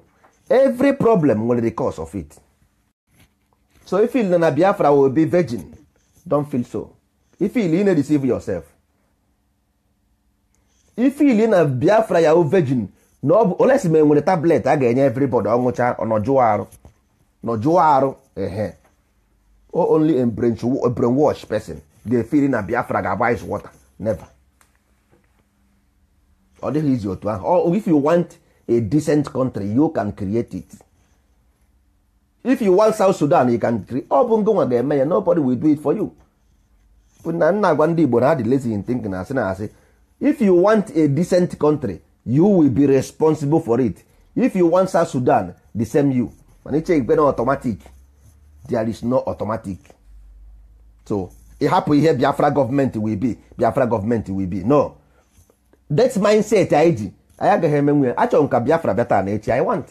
every problem nwere the cause of it so if you na Biafra will be virgin don feel so if you na deceive yourself if you na Biafra ya virgin na ọ bụ olesi ma enwere tablet a ga-enye everybody ọṅụcha nọjụọ arụ nọjụọ arụ ehe only a brainwash person ga-efiri na Biafra ga-agba ice water never ọ dịghị izi otu ahụ if you want a decent country you can create it if you want South Sudan you can create ọ bụ ngụnwa ga-eme ya nobody will do it for you na nna agwa ndị Igbo na ha dị lazy in thinking na asị na asị if you want a decent country you will be responsible for it if you want South Sudan the same you mana iche igbe na automatic there is no automatic so ịhapụ ihe Biafra gọọmenti will be Biafra gọọmenti will be no that mindset anyị ji anyị agaghị emenwe achọrọ m ka Biafra beta taa na echi I want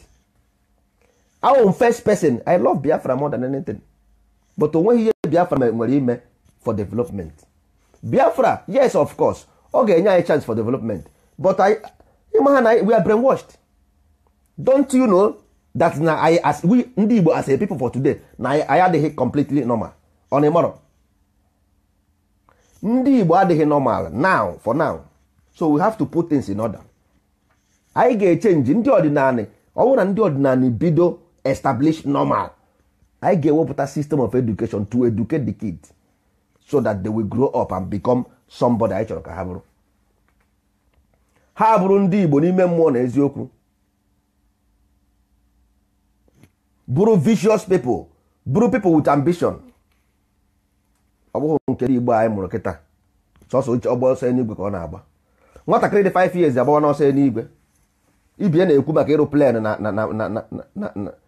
awụ won first person I love Biafra more than anything but onweghị ihe Biafra nwere ime for development Biafra yes of course ọ ga-enye anyị chance for development but I ịma ha na we are brainwashed don't you know that na anyị as we ndị Igbo as a people for today na anyị adịghị completely normal on a ịmọrọ ndị Igbo adịghị normal now for now so we have to put things in order anyị ga-echenji ndị ọdịnala ọ bụrụ na ndị ọdịnala bido establish normal anyị ga-ewepụta system of education to educate the kids so that they will grow up and become somebody anyị chọrọ ka ha bụrụ ha bụrụ ndị igbo n'ime mmụọ na eziokwu bụrụ vicious people bụrụ people with ambition ọ bụghị nke igbo anyị mụrụ kịta sọsọ uche ọgba ọsọ n'igwe ka ọ na-agba nwatakịrị dị 5 years agbawa n'ọsọ n'igwe ibie na-ekwu maka ịrụ plen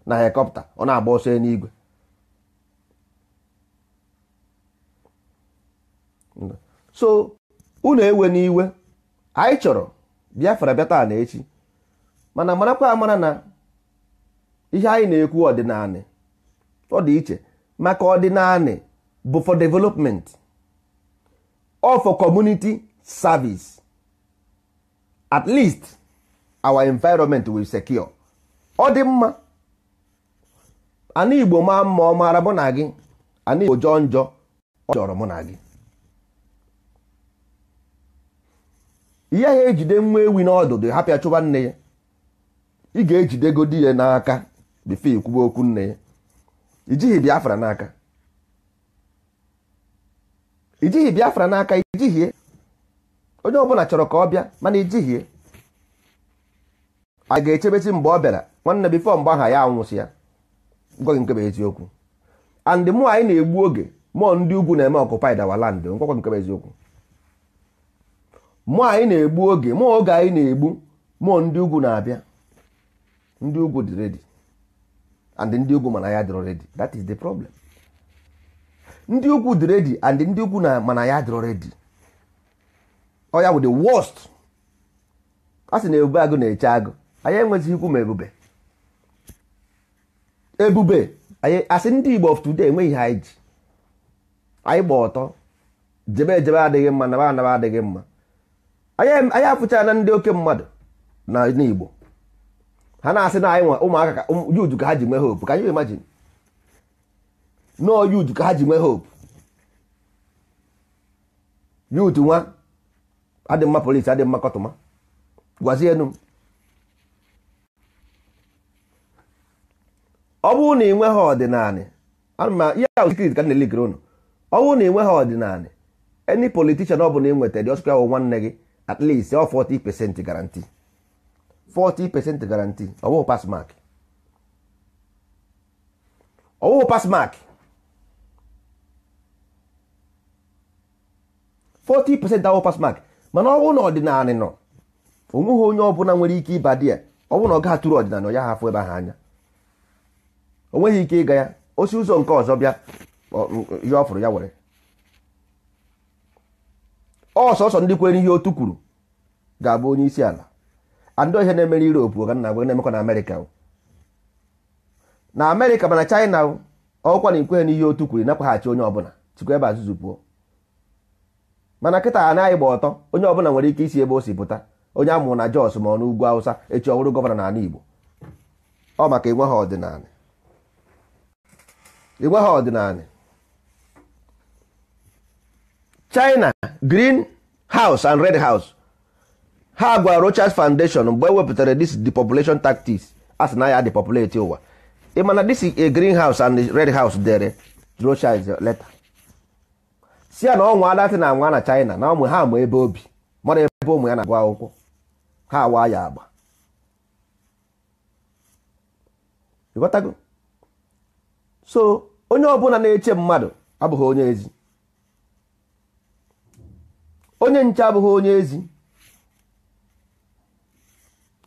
na helikọpta ọ na-agba ọsọ n'igwe so unu ewe n'iwe anyị chọrọ biafra bịa taa na echi mana marakwa amara na ihe anyị na-ekwu naanị ọ dị iche maka naanị bụ for development or for community service at least our environment will secure ọ dị mma ana igbo maa mma ọ maara mụ na gị ana igbo jọọ njọ ọ jọrọ mụ na gị ihe ahụ ejide nwa ewi n'ọdụdụ hapịa chụba nne ya ị ga di ya n'aka bifo ikwuba okwu nne ya ijighị biafra n'aka ijighị biafra n'aka ijighie onye ọbụla chọrọ ka ọ bịa mana ijighie a ga-echebesi mgbe ọ bịara nwanne bifo mgbe aha ya anwụsị ya gwaghị nkebe eziokwu and mụ anyị na-egbu oge mụọ ndị ugwu na-eme ọkụpaid awa land ngwakwa nkebe eziokwu mụ anyị na-egbu oge mụ oge anyị na-egbu mụọ ndị ugwu na-abịa ndị ugwu dị redi and ndị ugwu mana ya dịrọ redi that is the problem ndị ugwu dị redi and ndị ugwu na mana ya dịrọ redi ọ ya the worst a sị na ebube agụ na-eche agụ anyị enweghị ikwu ma ebube ebube asị ndị Igbo of today enweghị ha iji anyị gba ọtọ jebe ejebe adịghị mma naba anaba adịghị mma anyị afụcha na ndị oke mmadụ na igbo ha na-asị na anyị nwa ụmụaka ka yuju ka ha ji nwee hope ka anyị imagine no yuju ka ha ji nwee hope yutu nwa adị mma polisi adị mma kọtụma gwazienu ọ bụrụ na ị nweghị ọdịnala ama ihe ahụ sikrit ka na-elikere ụnụ ọ bụrụ na ị nweghị ọdịnala any politician ọ bụla ị nweta dị ọsụkwa nwanne gị at least ọ 40 percent guarantee 40 percent guarantee ọwụụ pass mark ọwụụ pass mark 40 percent ọwụụ pass mark mana ọ bụrụ na ọdịnala nọ onweghị onye ọbụla nwere ike ịba di ya ọ bụrụ na ọ ga-atụrụ ọdịnala ya hafụ ebe ahụ anya o nweghị ike ịga ya osi ụzọ nke ọzọ bịa ya ọ fụrụ ya were ọsọsọ ndị kwere ihe otu kwuru ga-abụ onye isi ala andị ihe na-emere Europe ka na na-emekwa na Amerịka na Amerịka mana China ọkwa na ikweghị n'ihe otu kwuru nakwaghachi onye ọbụla chikwa ebe azụzụ pụọ mana a anaghị gba ọtọ onye ọbụla nwere ike isi ebe o si pụta onye amụrụ na Jos ma ọ n'ugwu awụsa echi ọhụrụ gọvanọ n'ala Igbo ọ maka ha ọdịnala china green house and red house ha gwara rochas foundation mgbe ewepụtara this population tactics as na ya depopulate ụwa ịmana this a green house and red house dere rochas letter si ya na ọnwa adatị na anwa na china na ụmụ ha ma ebe obi mara ebe ụmụ ya na agba akwụkwọ ha awa ya agba so onye ọbụla na-eche mmadụ abụghị onye ezi onye nche abụghị onye ezi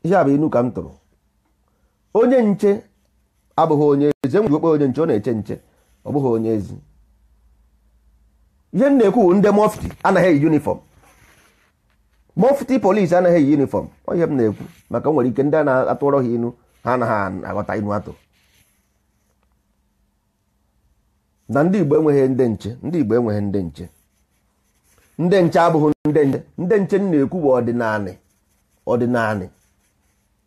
ihe a bụ inu ka m tụrụ onye nche abụghị onye ezi enwe okpe onye nche ọ na-eche nche ọ bụghị onye ezi ihe m na-ekwu ndị mọfti anaghị eyi yunifọm mọfti polisi anaghị eyi yunifọm ihe m na-ekwu maka nwere ike ndị a na-atụrọ ha inu ha anaghị aghọta inu atụ na ndị Igbo enweghị ndị nche ndị Igbo enweghị ndị nche ndị nche abụghị ndị nche ndị nche na-ekwu bụ ọdịnanị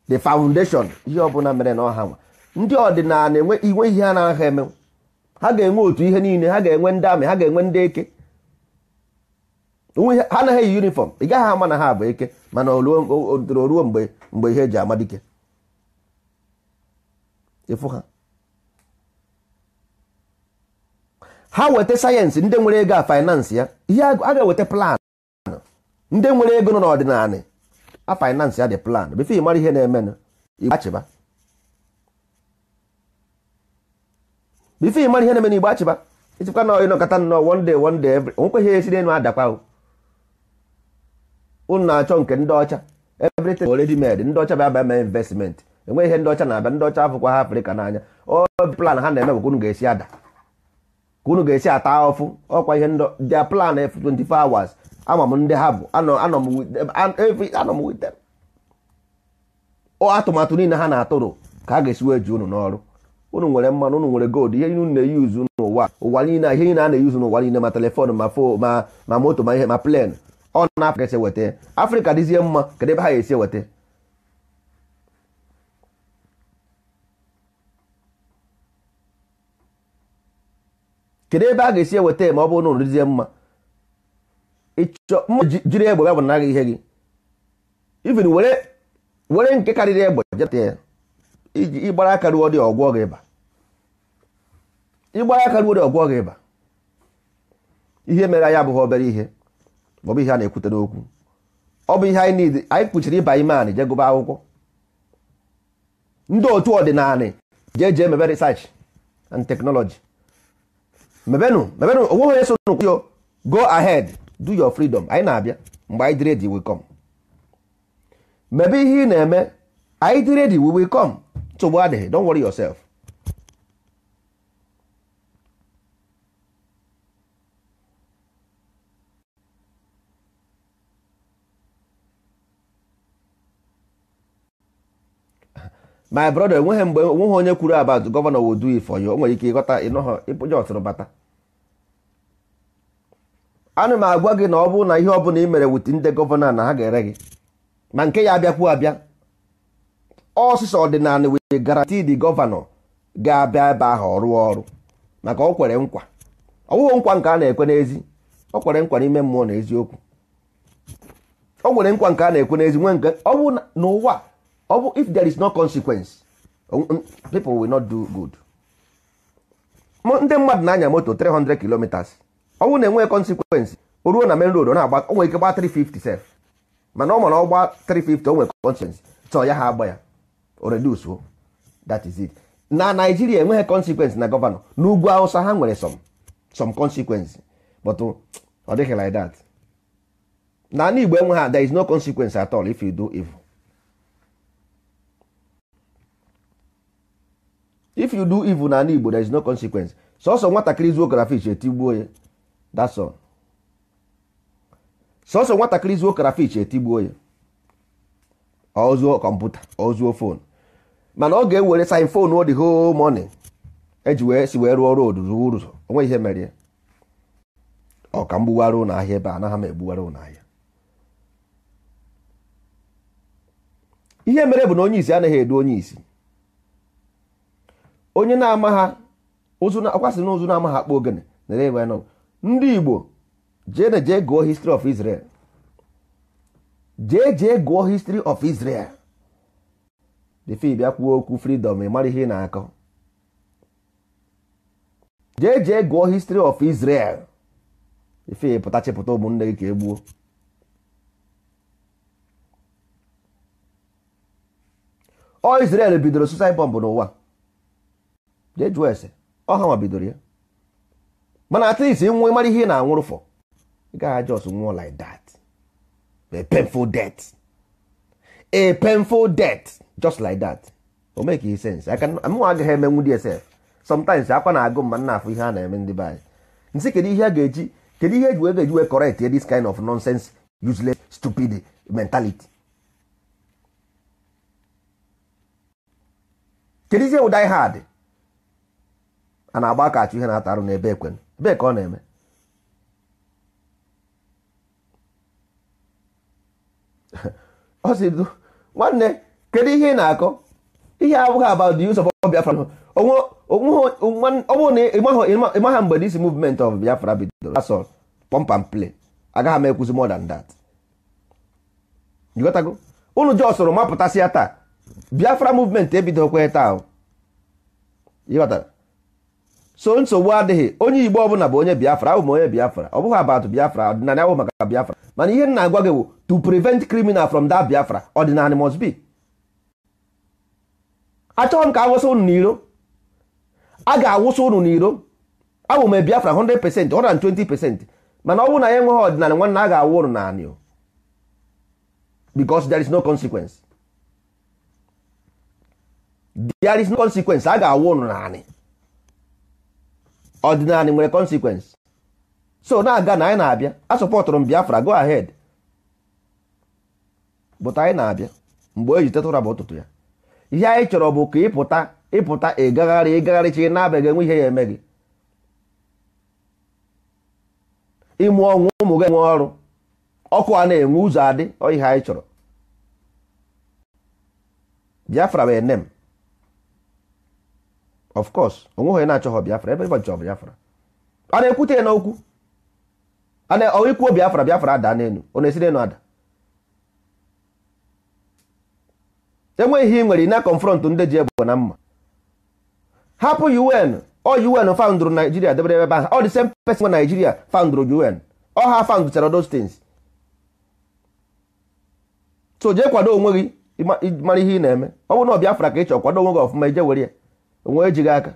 the foundation ihe ọbụla mere na ọha nwa ndị ọdịnala inwe ihe ha na-aha eme ha ga-enwe otu ihe niile ha ga-enwe ndị amị ha ga-enwe ndị eke ha anaghị eyi yunifọm ị gaghị ama na ha bụ eke mana o ruo mgbe ihe eji amadike ịfụ ha ha weta sayensị ndị nwere ego a faịnansị ya ihe a ga-eweta plan ndị nwere ego nọ n'ọdịnala a faịnansị ya dị plan bifo ịmara ihe na-emenụ igbachiba bifo ịmara ihe na-emenụ igbachiba ịchịkwa na ịnọkọta nnọọ one day one day every ihe esi n'elu adakwa ụnụ na-achọ nke ndị ọcha everything already made ndị ọcha bịaba mee investment enweghị ihe ndị ọcha na-abịa ndị ọcha afụkwa ha afrịka n'anya ọ plan ha na-eme bụkwa unu ga-esi ada ka unu ga-esi ata ọfụ ọkwa ihe their plan 24 hours ama m ndị ha bụ anọ m wit atụmatụ niile ha na-atụrụ ka a ga-esi wee ji unu n'ọrụ unu nwere mmanụ unu nwere gold ihe unu na-eyuzu n'ụwa ụwa niile ihe niile a na-eyuzu n'ụwa niile ma telefon ma fo ma ma moto ma ihe ma plen ọ na-apụ ka esi weta afrịka dịzie mma kedu ebe ha ga-esi weta kedu ebe a ga-esi eweta ma ọ bụrụ na orizie mma ịchọ mma jiri egbe ya bụ naghị ihe gị even were nke karịrị egbe ya ịgbara aka ruo dị ọgwụọ gị ịba ịgbara aka ruo dị ọgwụọ gị ịba ihe mere anyị abụghị obere ihe maọbụ ihe a na-ekwute n'okwu ọ bụ ihe anyị niile anyị kpuchiri ịba ime anị jee gụba akwụkwọ ndị otu ọdịnala jee jee mebe research and technology mebenu mebenụ onwe onye so nụ go ahead do your freedom anyị na-abịa mgbe anyị dị ready come mebe ihe ị na-eme anyị dị ready will come nsogbu adịghị don't worry yourself my brother enweghị mgbe onweghị onye kwuru about gọvanọ will do it for o nwere ike ịghọta ịnọghọ ịpụja ọtụrụ bata ana m agwa gị na ọ bụrụ na ihe ọbụla ị mere wit ndị gọvanọ na ha ga-ere gị ma nke ya abịakwuo abịa ọsịsa ọdịnala wee garanti the gọvanọ ga-abịa ebe ahụ ọrụ rụọ ọrụ maka o kwere nkwa ọwụghị nkwa nke a na-ekwe n'ezi o kwere nkwa n'ime mmụọ na eziokwu o nwere nkwa nke a na-ekwe n'ezi nwee nke ọ n'ụwa ọ bụ if there is no consequence uh, um, people will not do good ndị mmadụ na-anya moto 300 kilometers ọ bụrụ na enweghị consequence o ruo na main road ọ na-agba o nwere ike gbaa 350 sef mana ọ mara ọ gbaa 350 o nwere consequence chọọ ya ha agba ya o reduce o that is it na Naijiria enweghị consequence na gọvanọ n'ugwu Hausa ha nwere some some consequence but uh, ọ dịghị like that na ala Igbo enweghị there is no consequence at all if you do evil if you do evil n'ala Igbo there is no consequence sọsọ nwatakịrị zuo crayfish etigbuo ya that's all sọsọ nwatakịrị zuo crayfish etigbuo ya ọ zuo kọmputa ọ zuo fon mana ọ ga-ewere sin fon ọ dị whole morning eji wee si wee rụọ road ruo ụzọ onwe ihe mere ya ọ ka mgbugharị ụlọ ahịa ebe anaghị m egbugharị ụlọ ahịa ihe mere bụ na onye isi anaghị edu onye isi onye na-ama ha ọkwasịrị n'ụzụ na-amaghị akpa ogene nere ebe nọ ndị igbo jee na jee gụọ history of Israel jee jee gụọ history of Israel defi bịa kwuo okwu freedom ịmara ihe ị na-akọ jee jee gụọ history of Israel ife pụta chịpụta ụmụnne gị ka e gbuo ọ Israel bidoro suicide bomb n'ụwa jee jụọ ese ọha ma bidoro ya mana at least nwe mara ihe ị na-anwụrụ fọ ị gaghị just nwụọ like that a painful death a painful death just like that o make e sense mụnwa agaghị emenwu dị esef sometimes akwa na-agụ mma nna afọ ihe a na-eme ndị be anyị nsị kedu ihe a ga-eji kedu ihe eji wee eji wee correct this kind of nonsense useless stupid mentality kedu ihe wụ hard a na-agba aka achụ ihe na-ata arụ n'ebe ekwen ebee ka ọ na-eme ọ sị nwanne kedu ihe ị na-akọ ihe abụghị about the use of Biafra ọnwụ ịmaha mgbe this movement of Biafra bidoro asọ pump and play agaghị m ekwuzi more than that jikọtago unu ji ọsọrọ mapụtasị ya taa Biafra movement ebido ebidokwa taa ịghọtara so nsogbu adịghị onye igbo ọbụla bụ onye biafra abụ onye biafra ọ bụghị abatụ biafra ọdịnala ahụ maka biafra mana ihe na-agwa gị bụ to prevent criminal from that biafra ọdịnala must be achọghị m ka awụsa ụnụ n'iro a ga-awụsa ụnụ n'iro abụ m biafra 100% 120% mana ọ bụrụ na ya enweghị ọdịnala nwanne a ga-awụ unu naanị because there is no consequence there is no consequence a ga-awụ ụnụ naanị ọdịnala nwere consequence so na-aga na anyị na-abịa sọpọtụrụ m biafra go ahead but anyị na-abịa mgbe eji tetụra bụ ụtụtụ ya ihe anyị chọrọ bụ ka ịpụta ịpụta ịgagharị ịgagharị chi na-abaghị enwe ihe ya eme gị ịmụ ọnwụ ụmụ gị enwe ọrụ ọkụ a na-enwe ụzọ adị ihe anyị chọrọ biafra bụ m of course onweghị onye na-achọghọ biafra ebe ịbọchị biafra a na-ekwute ya n'okwu ikwuo biafra biafra ada n'elu ọ na-esi n'elu ada enweghị ihe ị nwere na konfrọntụ ndị ji ebubo na mma hapụ un ọ un faụndụrụ naijiria debere ebe ahụ ọ dị same person nwe naijiria faụndụrụ un ọ ha faụndụchara those things so jee kwado onwe gị mara ihe ị na-eme ọ bụrụ na ọ biafra ka ị chọọ kwado onwe gị ọfụma ije were ya onwe ejighị aka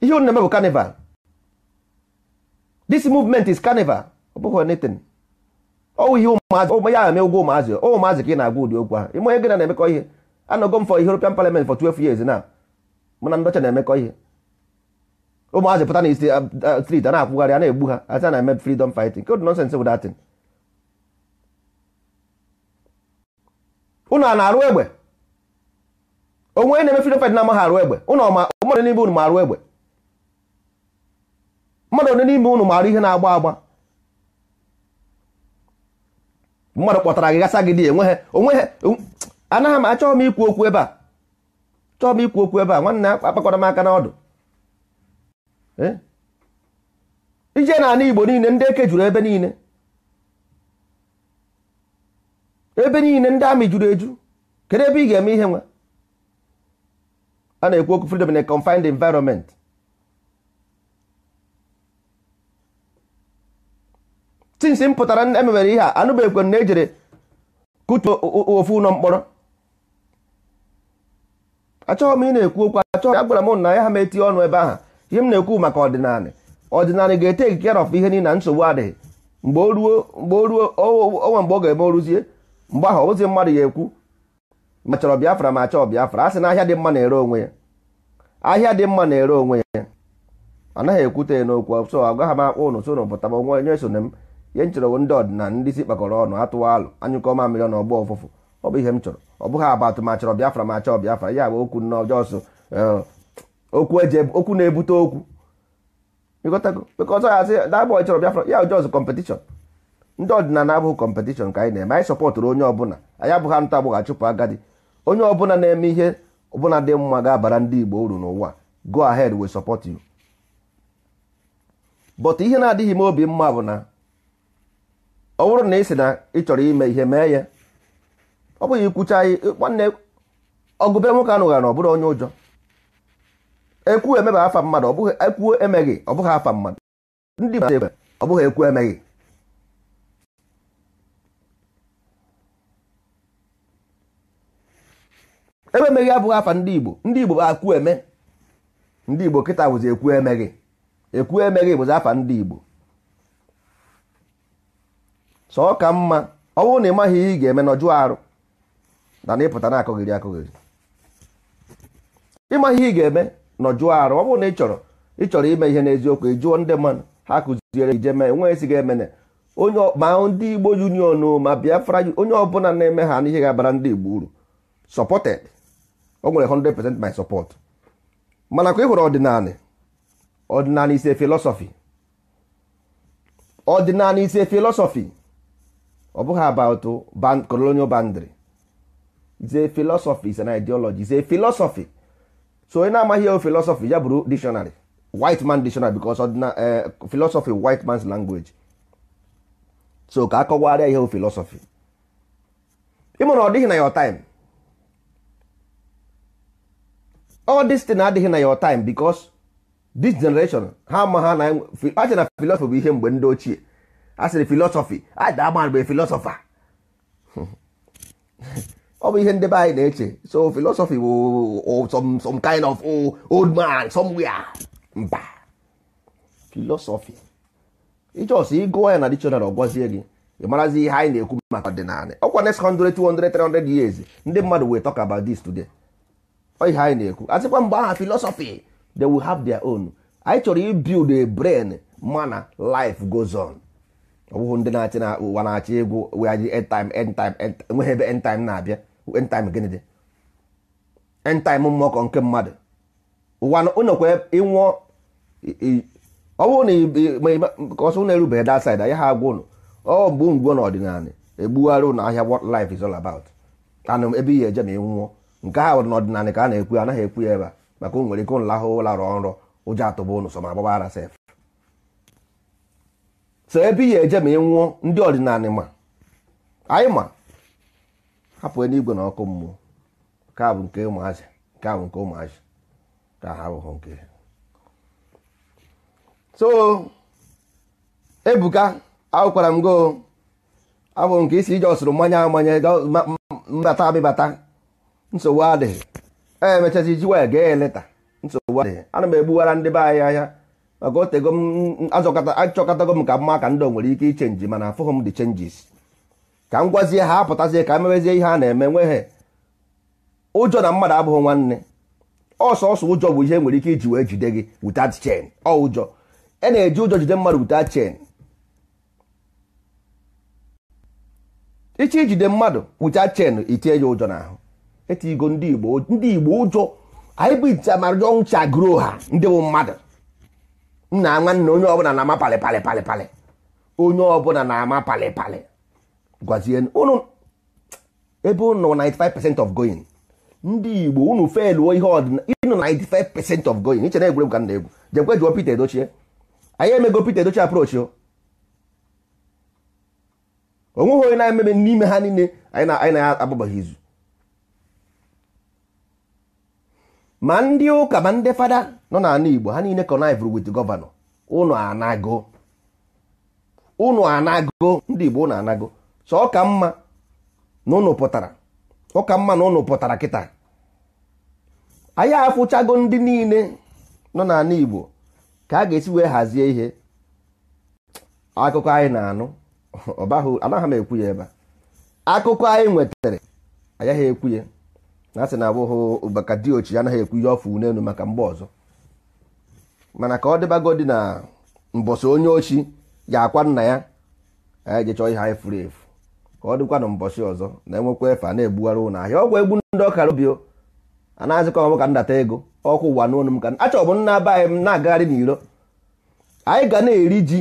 ihe unu na-eme bụ carnival this movement is carnival ọ bụghị anything ọwụ ihe ụmụazị ya eme ụgwọ ụmụazị ụmụazị ka ị na-agwa ụdị okwu ahụ ime onye gị na na-emekọ ihe anọgo m for European Parliament for 12 years na mụ na ndọcha na-emekọ ihe ụmụazị pụta na uh, uh, street a na-akwụgharị a na-egbu ha a na-eme freedom fighting code nonsense bụ datin a na-arụ egbe onwe na-eme freedom fight na-amaghị arụ egbe mmadụ n'ime unu marụ egbe mmadụ onye n'ime unu marụ ihe na-agba agba mmadụ kpọtara gị gasa gị dị enweghị ha um, anaghị m achọghị m ikwu okwu ebe a chọọ m ikwu okwu ebe a nwanne akpakọrọ m aka n'ọdụ eh? ije na-ana Igbo niile ndị eke juru ebe niile ebe niile ndị amị juru eju kedu ebe ị ga-eme ihe nwa a na-ekwu okwu freedom in a confined environment since m pụtara e ihe a anụbeghịkwa na ejere kutuo ofu ụlọ mkpọrọ achọghị m ị na-ekwu okwu achọghị agwara m na ya ha metie ọnụ ebe ahụ ihe m na-ekwu maka ọdịnala ọdịnala ga-ete care ọf ihe niile na nsogbu adịghị mgbe o ruo mgbe o ruo onwe mgbe ọ ga-eme oruzie mgbe ahụ ozi mmadụ ya ekwu ma chọrọ biafra ma chọọ biafra a sị na ahịa dị mma na-ere onwe ya ahịa dị mma na-ere onwe ya anaghị ekwute n'okwu so agwa ha m akpụ ụnụ so ụnụ pụta onwe onye so m ihe m chọrọ ndị ọdịna ndị isi kpakọrọ ọnụ atụwa alụ anyụkọ mmiri na ọgbọ ụfụfụ ọ bụ ihe m chọrọ ọ bụghị abatụ ma chọrọ biafra ma chọọ biafra ya bụ okwu n'ọjọọ eh, okwu na-ebute okwu ọzọ ya sị dabọ chọrọ biafra ya ọjọọ kọmpetishọn ndị ọdịnala abụghị kọmpetishọn ka anyị na-eme anyị sọpọtụrụ onye ọbụla anyị abụghị ntụ agbụgha chụpụ agadi onye ọbụla na-eme ihe ọbụla dị mma ga-abara ndị Igbo uru n'ụwa go ahead we support you but ihe na-adịghị m obi mma bụ na ọ bụrụ na ị sị na ị chọrọ ime ihe mee ya ọ bụghị ikwucha nwanne ọgụbe nwoke anụgha na ọ bụrụ onye ụjọ ekwu emeghị afa mmadụ ọ bụghị ekwu emeghị ọ bụghị afa mmadụ ndị ọ bụghị ekwu emeghị ebe emeghị abụghị afa ndị Igbo ndị Igbo bụ akwu eme ndị Igbo kịta bụzi ekwu emeghị ekwu emeghị bụzi afa ndị Igbo sọ ka mma ọ bụrụ na ị maghị ihe ị ga-eme nọjụ arụ na na ịpụta na-akọghịrị akụghịrị ịmaghị ihe ị ga-eme nọjụ arụ ọ bụrụ na ị chọrọ ị chọrọ ime ihe n'eziokwu ị jụọ ndị mmadụ ha kụziere ije mee nwe esighị emene onye ma ndị Igbo union ma Biafra onye ọbụla na-eme ha n'ihe ga-abara ndị Igbo uru sọpọted o nwere 100% my support mana ka ị hụrụ ọdịnala ọdịnala is a philosophy ọdịnala is a philosophy ọ bụghị about band, colonial boundary is a philosophy is an ideology is a philosophy so onye na-amaghị ewu philosophy ya bụrụ dictionary white man dictionary because ọdịna eh, philosophy white man's language so ka akọwarịa ihe philosophy ịmụ na ọ dịghị na your time all this thing adịghị na your time because this generation ha ma na achị na philosophy bụ ihe mgbe ndị ochie a sịrị philosophy ada agba mgbe philosopher ọ bụ ihe ndị be anyị na-eche so philosophy bụ some, kind of old man somewhere mba philosophy ịchọsị ịgụọ ya na dictionary ọgwazie gị ị marazi ihe anyị na-ekwu maka ọdịnala ọkwa next 100 200 300 years ndị mmadụ wee talk about this today ihe anyị na-ekwu asịkwa mgbe aha philosophy they will have their own anyị chọrọ ibuild a brain mana life goes on ọ bụghị ndị na-achị na ụwa na-achị egwu wee end time end time enweghị ebe end time na-abịa end time gịnị dị end time mmụọkọ nke mmadụ ụwa ụnọkwa ịnwụọ ọ bụrụ na ka ọsọ ụnụ erubeghị that side ya ha agwa ụnụ ọ bụ ngwo n'ọdịnala egbugharị ụnụ ahịa what life is all about anụ ebe ihe eje ma ịnwụọ nke ha nwere n'ọdịnala ka a na-ekwu ya anaghị ekwu ya ebe a maka o nwere ike nlahụ larụọ nrọ ụjọ atụba ụnụ so ma agbabara sef so ebe ihe eje ma ị nwụọ ndị ọdịnala ma anyị ma hapụ n'igwe na ọkụ mmụọ nke a bụ nke ụmụazị nke a bụ nke ụmụazị ka ha abụghị nke so ebuka akwụkwara m go abụ nke isi ije ọsụrụ mmanya amanye mbata abịbata nsogbu adịghị emechazi iji wee gee eleta nsogbu adịghị ana m egbughara ndị be anyị ahịa maka otego m achọkọtago m ka mma ka ndị nwere ike ichenji mana afụghị m dị chenjis ka m gwazie ha apụtazie ka mewezie ihe a na-eme nweghị ụjọ na mmadụ abụghị nwanne ọsọ ọsọ ụjọ bụ ihe nwere ike iji wee jide gị without chain ọ ụjọ e na-eji ụjọ jide mmadụ without chain iche ijide mmadụ without chain itinye ya ụjọ n'ahụ etigo ndị igbo ndị igbo ụjọ anyị bụ ite gro ha ndị bụ nna nwanne onye ọbụla na-ama onye ọbụla na-ama palị gwazie unu 95% of going ndị igbo unu feluo ihe ọdịna 95% of going iche na egwuregwu ka jụọ Peter Edochie onweghị onye na n'ime ha niile anyị na izu ma ndị ụka ma ndị fada nọ n'ala Igbo ha niile connive wit gọvanọ ụnụ anago ụnụ anago ndị Igbo ụnụ anago so ọka mma na ụnụ pụtara ọka mma na ụnụ pụtara kịta anyị afụchago ndị niile nọ n'ala Igbo ka a ga-esi wee hazie ihe akụkọ anyị na-anụ ọbahụ anaghị m ekwu ya ebe a akụkọ anyị nwetara agaghị ekwu ya na asị na abụghị maka diochi anaghị ekwu ihe ọfụ n'elu maka mgbe ọzọ mana ka ọ dịbago dị na mbọsị onye ochi ya akwa nna ya anyị chọọ ihe anyị furu efu ka ọ dịkwa na mbọsị ọzọ na-enwekwa efe a na-ebugharị ụlọ ahịa ọgwụ egbu ndị ọkara obi anaghịzịkọ ọmụ ka ndata ego ọkụ ụwa n'onu ka achọrọ m nna be anyị m na-agagharị n'iro anyị ga na-eri ji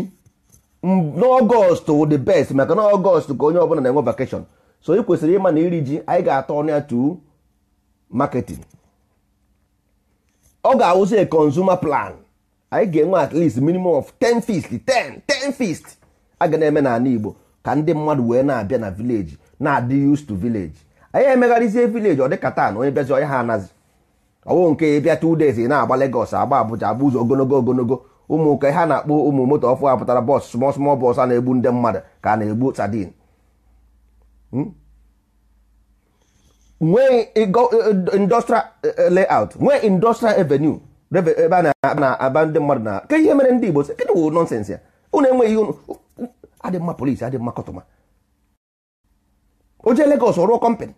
n'ọgọst wụ best maka na ọgọst ka onye ọbụla na-enwe vakeshọn so ị kwesịrị ịma na iri ji anyị ga-atọ ọnụ ya tuo marketing ọ ga-awụsị a consumer plan anyị ga-enwe at least minimum of 10 feast 10 10 feast aga na-eme n'ala Igbo ka ndị mmadụ wee na-abịa na village na-adị used to village anyị emegharịzie village ọ dịka taa na onye bịazi onye ha anazi ọwụ nke ịbịa two days ị na-agba Lagos agba Abuja agba ụzọ ogologo ogologo ụmụ ka ha na-akpọ ụmụ moto ọfụ apụtara bọs small small bọs a na-egbu ndị mmadụ ka a na-egbu sadin hmm? nwee uh, uh, industrial uh, layout nwee industrial avenue ebe a na-aba ndị mmadụ na ke ihe mere ndị Igbo sị kedụ wụ nọnsens ya unu enweghị ihe adị mma polisi adị mma kọtụma o jee Lagos ọrụọ kọmpanị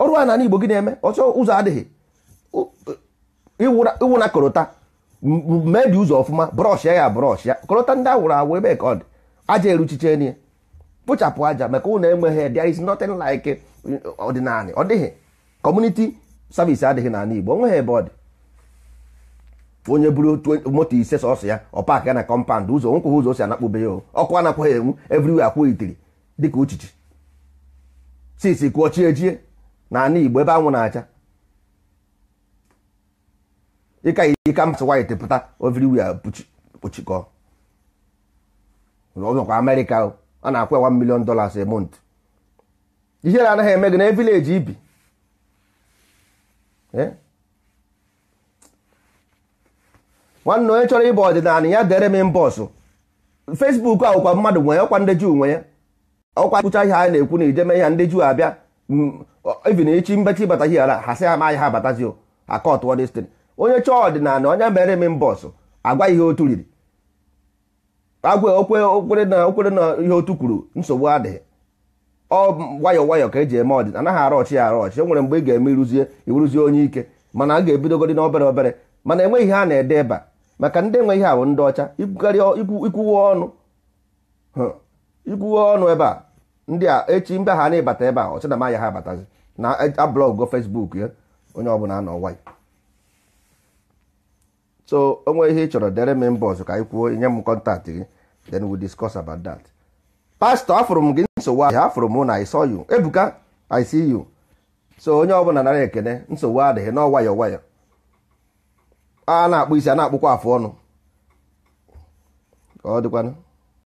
ọrụ a n'ala Igbo gị na-eme ọsọ ụzọ adịghị eh, iwu na korota mebie ụzọ ọfụma brọsh ya ya brọsh ya korota ndị awụrụ awụ ebe ka ọ dị aja eruchiche n'ihe kpochapụ aja maka ụlọ enweghị there is nothing like ọdịnala ọ dịghị community service adịghị n'ala Igbo onweghị ebe ọ dị onye buru moto ise sọsọ ya ọ paakị ya na kọmpand ụzọ nkwụghị ụzọ o si anakpụbe ya ọkụ anakwaghị enwu everywhere akwụ itiri dịka uchichi sisi kwụọ chi ejie n'ala Igbo ebe anwụ na-acha ịka ika masị white pụta everywhere kpuchikọ ọzọkwa Amerịka o a na-akwụ ya 1 million dollars a month anaghị eme gị na evileji ibi eh? nwanne onye chọrọ ịba ọdịnala ya dere m mbọsụ Facebook awụkwa mmadụ nwe ọkwa ndị juu nwe ya ọkwa kpụcha ihe anyị na-ekwu na ijeme ihe ndị juu abịa even echi mbechi ịbata ihe ara ha sị ha amaghị ha abatazi akọtụọ destin onye chọọ ọdịnala onye mere m mbọsụ agwa ihe otu riri agwa okwe okwere na okwere na ihe otu kwuru nsogbu adịghị ọ nwayọọ nwayọọ ka eji eme ọdịna anaghị arọchi ya arọchi e nwere mgbe ị ga-eme iruzie iruzie onye ike mana a ga-ebidogodi na obere obere mana enweghị ihe a na-ede ebe a maka ndị enwe ihe ahụ ndị ọcha ikwuwe ọnụ ikwuwe ọnụ ebe a ndị a echi mbe ha na-ebata ebe a ọcha na maya ha abatazi na e, ablọgo fesbuk ya onye ọbụla anọ nwayọ so onwe ihe ị chọrọ dere m mba ọzọ ka anyị kwuo nye m kọntaktị gị then we discuss about that pastor afụrụ m gị nsogbu ahụ afụrụ m na i saw you ebuka i see you so onye ọbụla nara ekene nsogbu adịghị na ọwayọ nwayọ a na-akpụ isi a na-akpụkwa afụ ọnụ ka ọ dịkwanụ